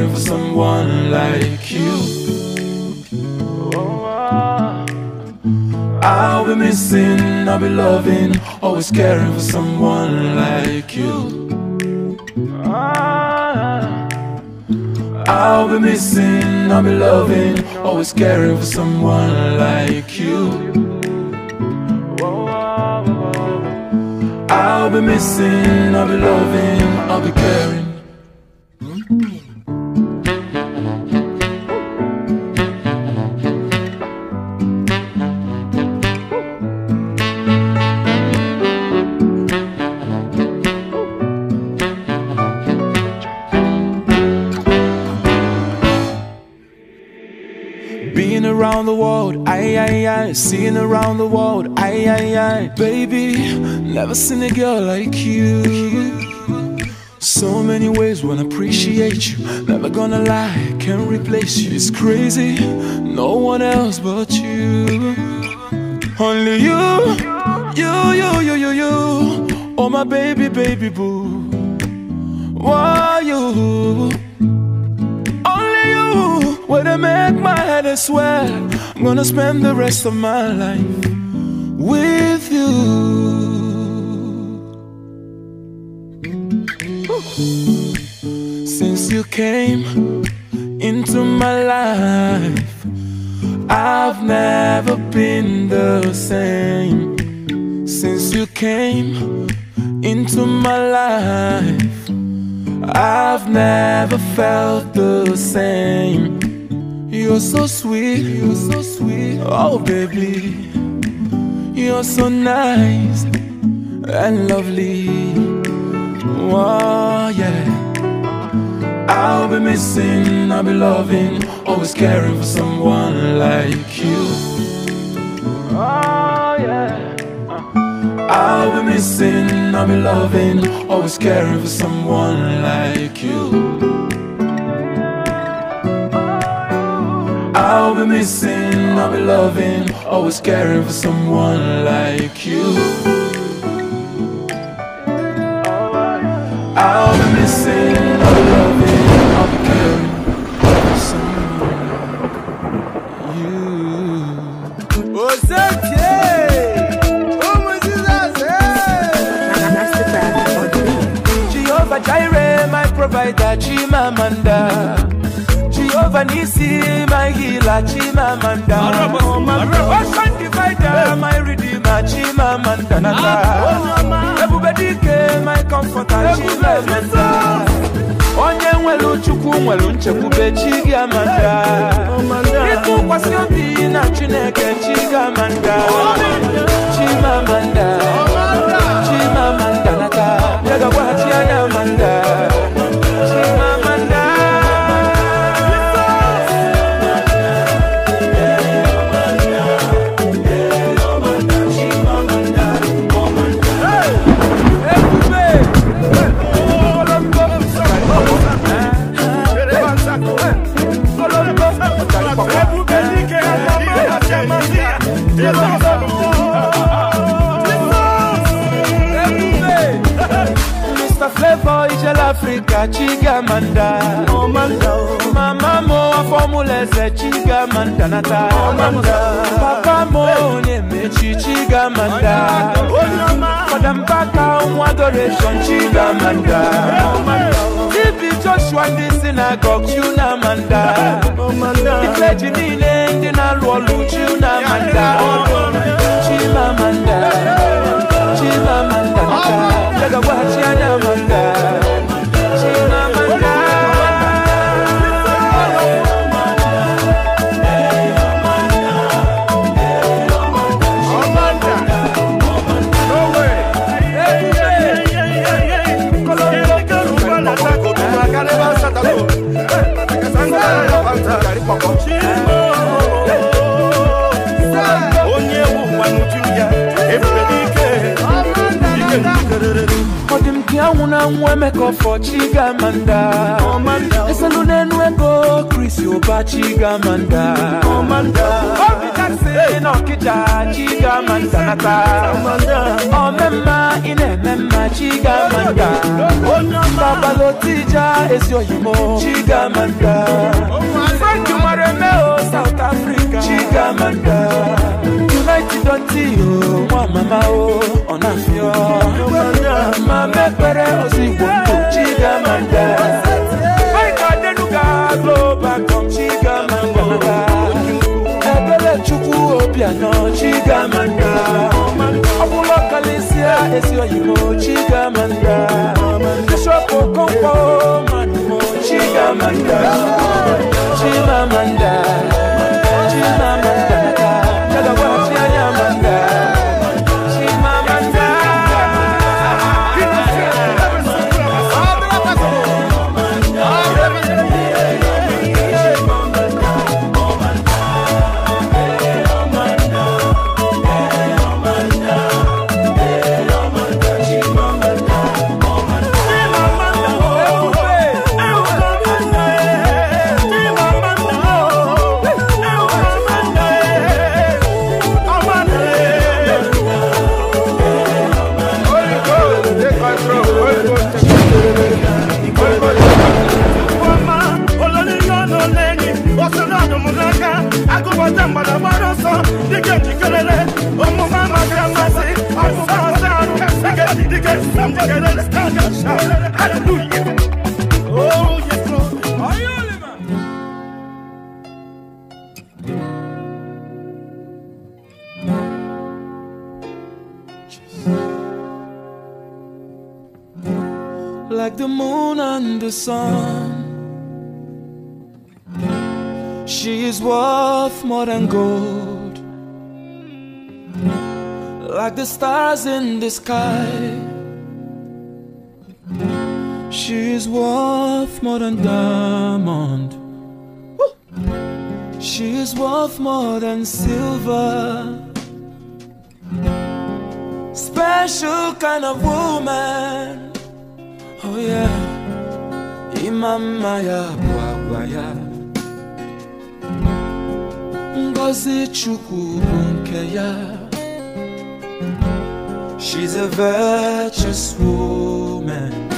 longing for someone like you I'll be missing, I'll be loving Always caring for someone like you I'll be missing, I'll be loving Always caring for someone like you I'll be missing, I'll be loving, I'll be caring never seen a girl like you. So many ways when I appreciate you. Never gonna lie, can't replace you. It's crazy, no one else but you. Only you, you, you, you, you, you. Oh my baby, baby boo. Why you? Only you. When I make my head I swear, I'm gonna spend the rest of my life with you. so nice and lovely. Oh, yeah. I'll be missing, I'll be loving, always caring for someone like you. Oh, yeah. I'll be missing, I'll be loving, always caring for someone like you. I'll be missing, I'll be loving, always caring for someone like you I'll be missing, i loving, I'll be caring for someone like you What's up, Jay? Oh my Jesus, hey! Jehovah Jireh, my provider, Chimamanda Nisi, my healer, Chimamanda. Ocean divider, my redeemer, Chimamanda. Everybody ah, ah, oh, oh, came, my comforter, Chimamanda. Onye nwelu chukwu nwelu nchekwube chi gị ịtụkwasị obi na chineke chi gị amanda chigamanda mama mo afọmulẹsẹ chigamanda nata papa mo onyemechi chigamanda fọdàmbaka nwa adoration chigamanda ibi joshua ndị sinagog chunamanda ifeji niile ndị na-alụ ọlụ chunamanda chimamanda chimamanda nata jagagwa chianamanda yawuna nwemekọ fọ chigamanda eselunenwego krisi ụba chigamanda obitasị n'ọkịja chigamanda nata omemma oh, ị na-eme mma chigamanda oh, babalotija ezi oyimo chigamanda frank mara o oh, south africa chigamanda united until o nwa mama o ọ̀nàfíà máa mẹ́pẹ̀rẹ́ òsìkò tó chíga máa ń dá. Báyìí Adénúgà global com chíga máa ń gbàgbà. Ẹgbẹ́lẹ̀ Chukwu Obianọ chíga máa ń dá. Ọ̀pọ̀lọ́ Kàlísíà èsì òyìnbó chíga máa ń dá. Bíṣọ̀pù Kọ́ńpọ̀ Màdùmọ̀ chíga máa ń dá. Chíma máa ń dá. Chíma máa ń dá. Like the moon and the sun, she is worth more than gold. Like the stars in the sky worth more than diamond. She's worth more than silver. Special kind of woman. Oh yeah. Imamaya Bwagwaya. Ngozi Chukwu Bunkeya. She's a virtuous woman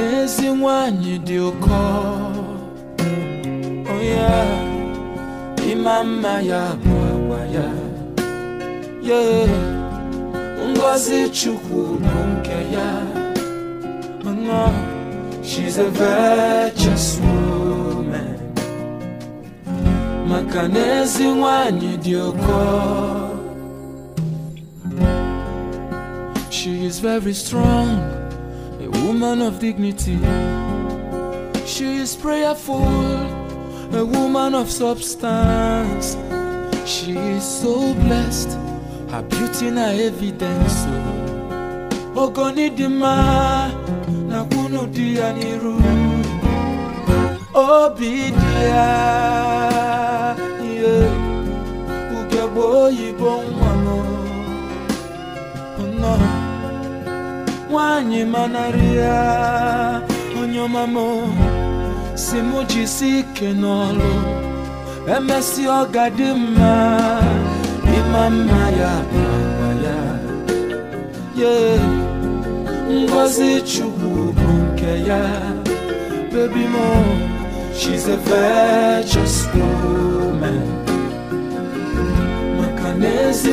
n'ezi nwanyị dị ụkọ oya ịma mma ya bụ agwa ya ye ngozi chukwu bụ nke ya mana she's a virtuous woman maka n'ezi you do call. she is very strong a woman of dignity. She is prayerful, a woman of substance. She is so blessed, her beauty na evidence. Oh. Ogoni di ma na kunu dianiru. Obidia, yeah, ukebo ibon wano. No. mwanyi manaria onyomamo simujisi ike n'ọlụ emesi ọ ya mma ya ye ngozi chukwu bụ ya baby mo she's a virtuous woman maka na ezi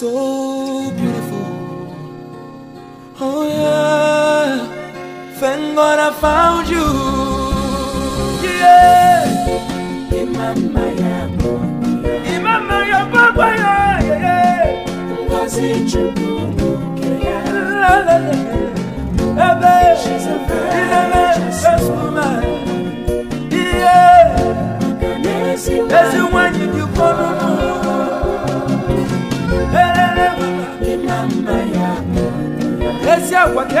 so beautiful. Oh yeah, thank God I found you. Yeah, in my mind, in my mind, yeah, yeah. Was it true? La la la, She's a woman. Yeah, that's the one you She's agwa ka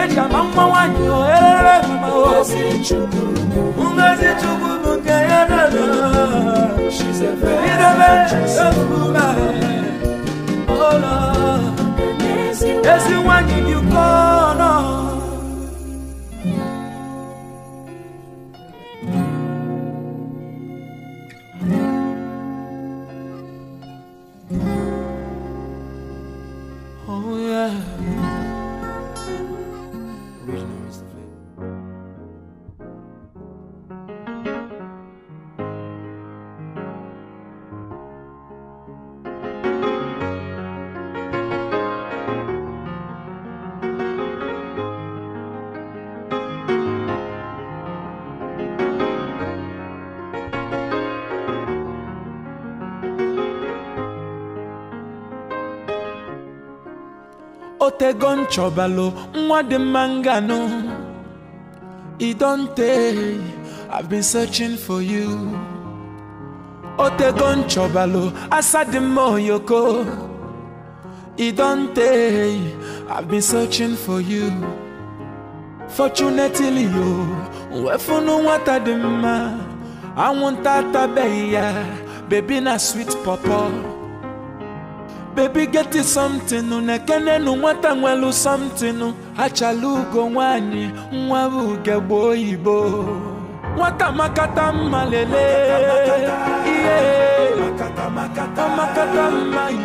eji otego nchọbalụ nwa dị mma nganụ i don tey i've been searching for you otego nchọbalụ asa dị mma oyoko i don tey i've been searching for you fortunately o nwefunu nwata dị mma anwụnta atabeghị ya bebi na sweet pọpọ bebi geti something na-ekenenu nwata nwelu something achala ugo nwanyị nwa uge ugegbe oyibo nwata makata mma lele ihe makata mma ihe,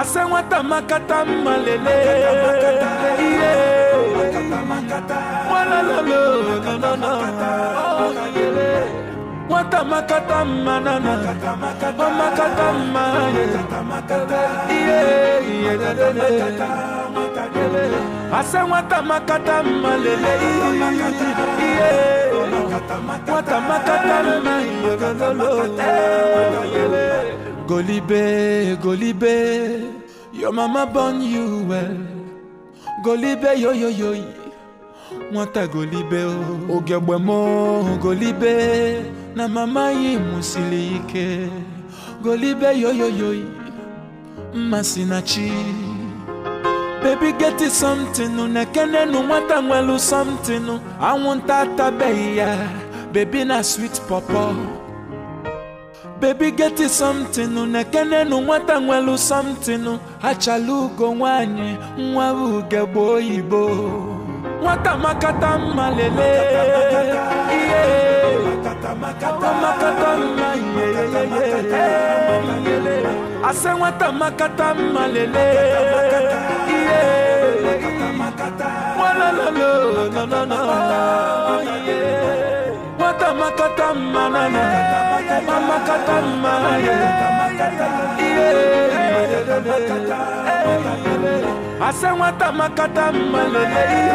ase nwata makata mma lele ihe nwalalolo makata ọ oh, yele Wata makata manana Wa makata mane Yeah, yeah, yeah, yeah Asa wata makata malele Yeah Wata makata mane Golibe, Golibe Your mama born you well Golibe, yo, yo, yo, yo wọ́n ta gòlíbẹ́ o. Oh. ògẹ̀gbẹ̀ mọ́ gòlíbẹ́. na mama ya mụsiri ike golibe yoyoyoyi mmasị na chi bebi geti somtinu na nwata nwelu somtinu anwụnta atabeghị ya bebi na swit pọpọ bebi geti somtinu na-ekenenu nwata nwelu somtinu achala ugo nwanyị nwa ugegbe oyibo nwata makata mmalele ihe asengwata makata malele wata makata manana mamakata manana asengwata makata malele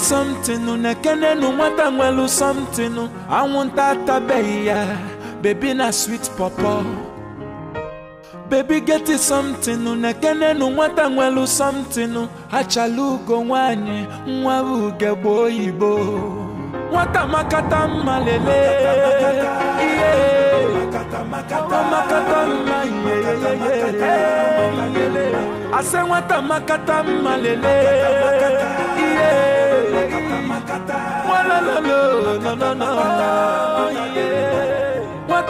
something nu nekene nu no ngwelu something nu anwụnta atabeghị ya Baby na sweet papa Baby get it something unekene nu nwata nwelu something Achalu ugo nwanyi nwa uge gbo oyibo makata mma lele Makata mma Ase nwata makata mma lele Iye Nwalalolo no no no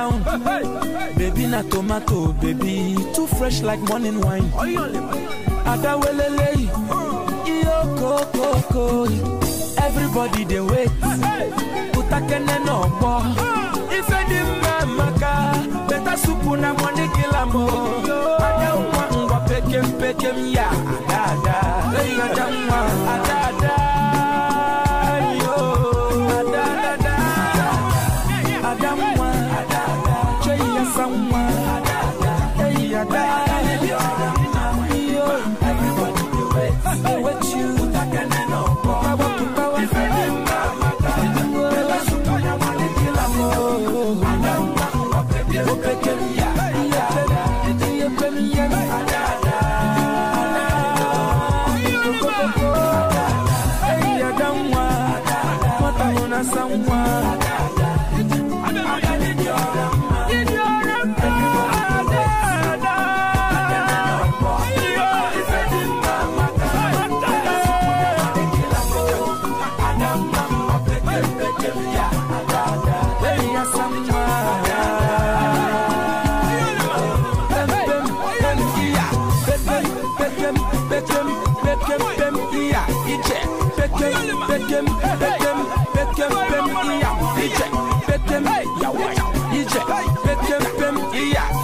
down. Baby na tomato, baby, too fresh like morning wine. Adawelele, iyo koko ko. Everybody they wait. Utakene no bo. Ife di maka, better supu na money kila mo. Oh. Adamwa ngwa peke peke ya, ada ada. Hey adamwa, ada.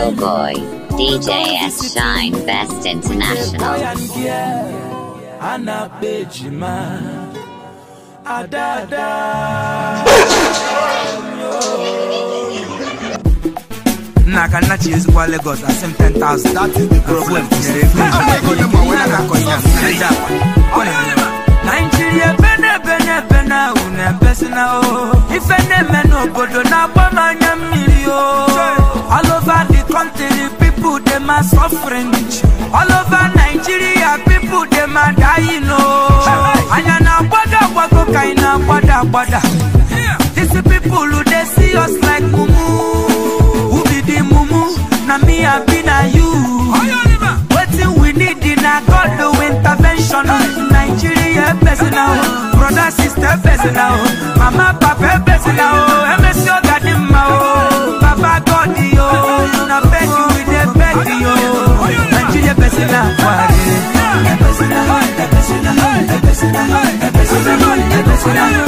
Oh boy. DJS Shine Best International. Nakanachi is what Lagos at same 10,000. That is the problem. Nigeria, Bene, Bene, Bene, Une, Besina, If any man, no, but don't have one, I'm a million. All over my suffering. All over Nigeria, people they my dying. Oh, and you now bother, what go kind of bother, bother. These people who they see us like mumu. Who be the mumu? Na me, I be na you. Waiting, we need in a God the intervention. Nigeria, personal, brother, sister, personal, mama, papa. Mama,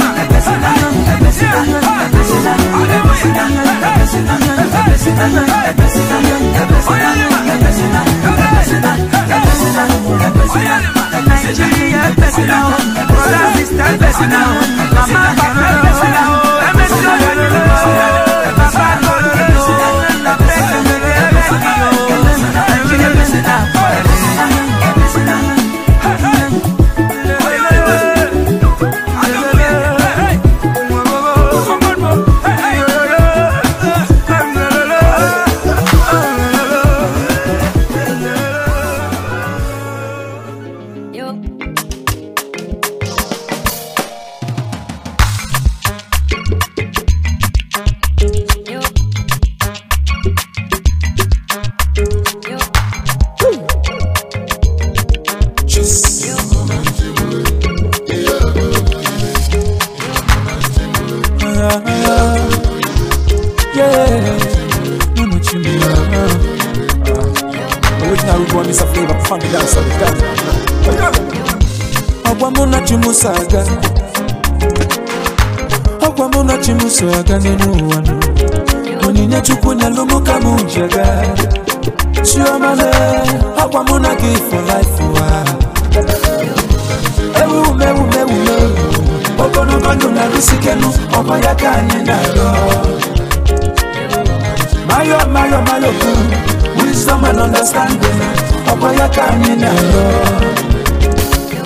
kanye nalo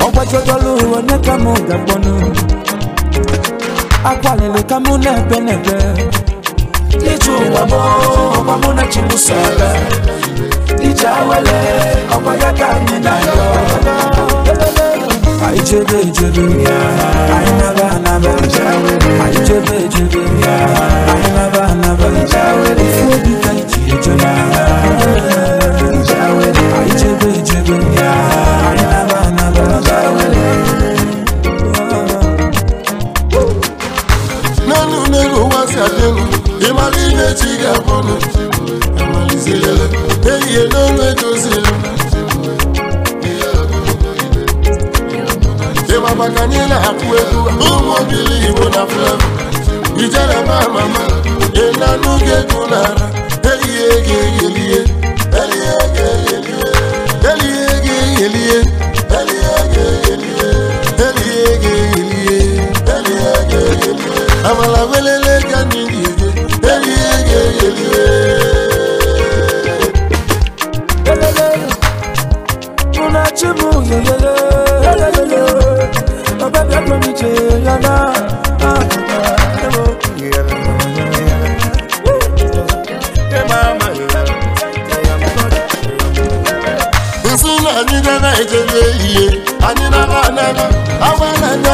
ogbajodooluwo nekamu gagbonu akwalele kamu nebenebe ijuwamo ọmọmu na chimusala ijawele ọgbaya kanye anaba Aichebe ichebe Ainaba ka ichi echona ijere ma mama ịlanụ gị egwu n'ara eyi ego eyilie elie. Amala welele gani liye. Elie ge elie.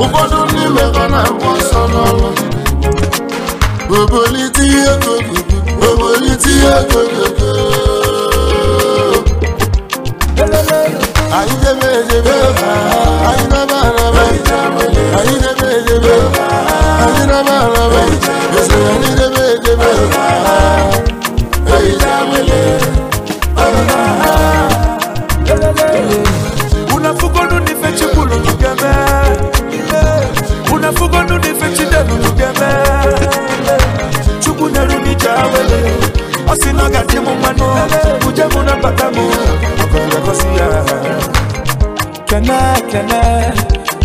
ụfọdụ ndị mebe na mmụọ nsọ n'ọrụ obolite ihe obolite ihe gogogo anyị debe edebe anyị debe araba anyị debe edebe anyị debe araba esere anyị debe edebe eyi jamele ọrụ na Osi oh, noga chemo mano Uje muna patamu Mokonga kosia Kena, kena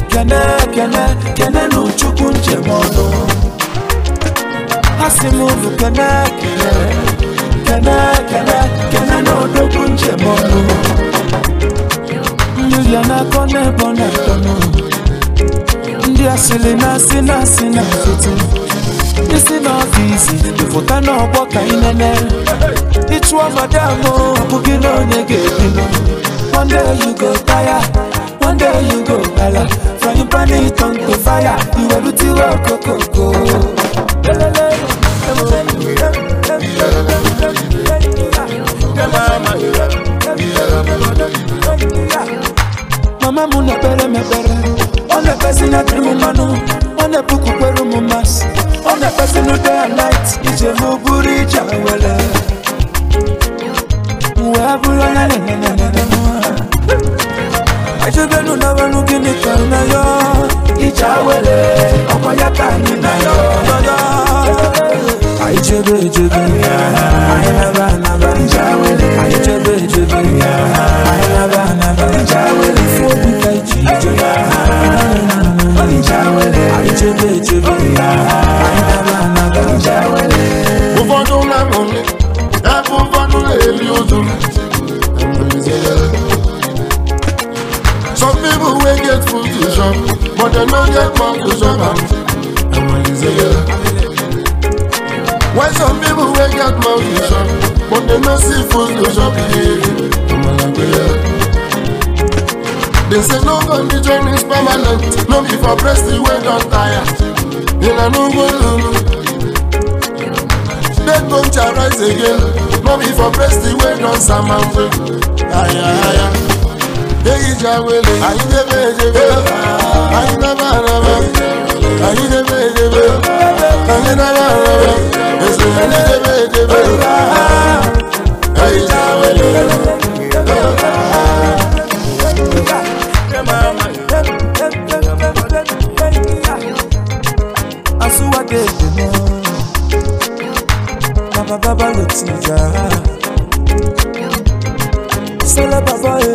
Kena, kena Kena nuchuku nje mono Asi mulu kena, kena Kena, kena Kena nuchuku nje na kone bona tono Ndi asili nasi nasi This is not easy. ka inene ịchụọ madam abụghị na onye ga-ebinụ one of them on One day you go tire one day you go ala frying pan it on the fire iwerutiwe okokoko mama m na mama, m ekpere ọ na-ekpesi na dịrị m mmanụ ọ na-epukwu kwere m mmasị I'm the person who day and night Ije mu buri jawala Mwabu la la i la la la mwa Ajebenu na wenu gini tana yo Ijawele Ọmọ ya ka ni na yo Ajebe ejebe Ajebe Why some people wake up money to shop, but they no see food to shop? They say no condition is permanent, no be for breast the way don tire. Una no go lulu. Dead bone shall rise again, no be for breast the way don sama. Aya aya. ehicha wele anyị debe edebe anyị naba araba anyị debe edebe anyị naba araba ese anyị debe edebe ehicha wele Asuwa debe na Baba baba lotija Sala baba e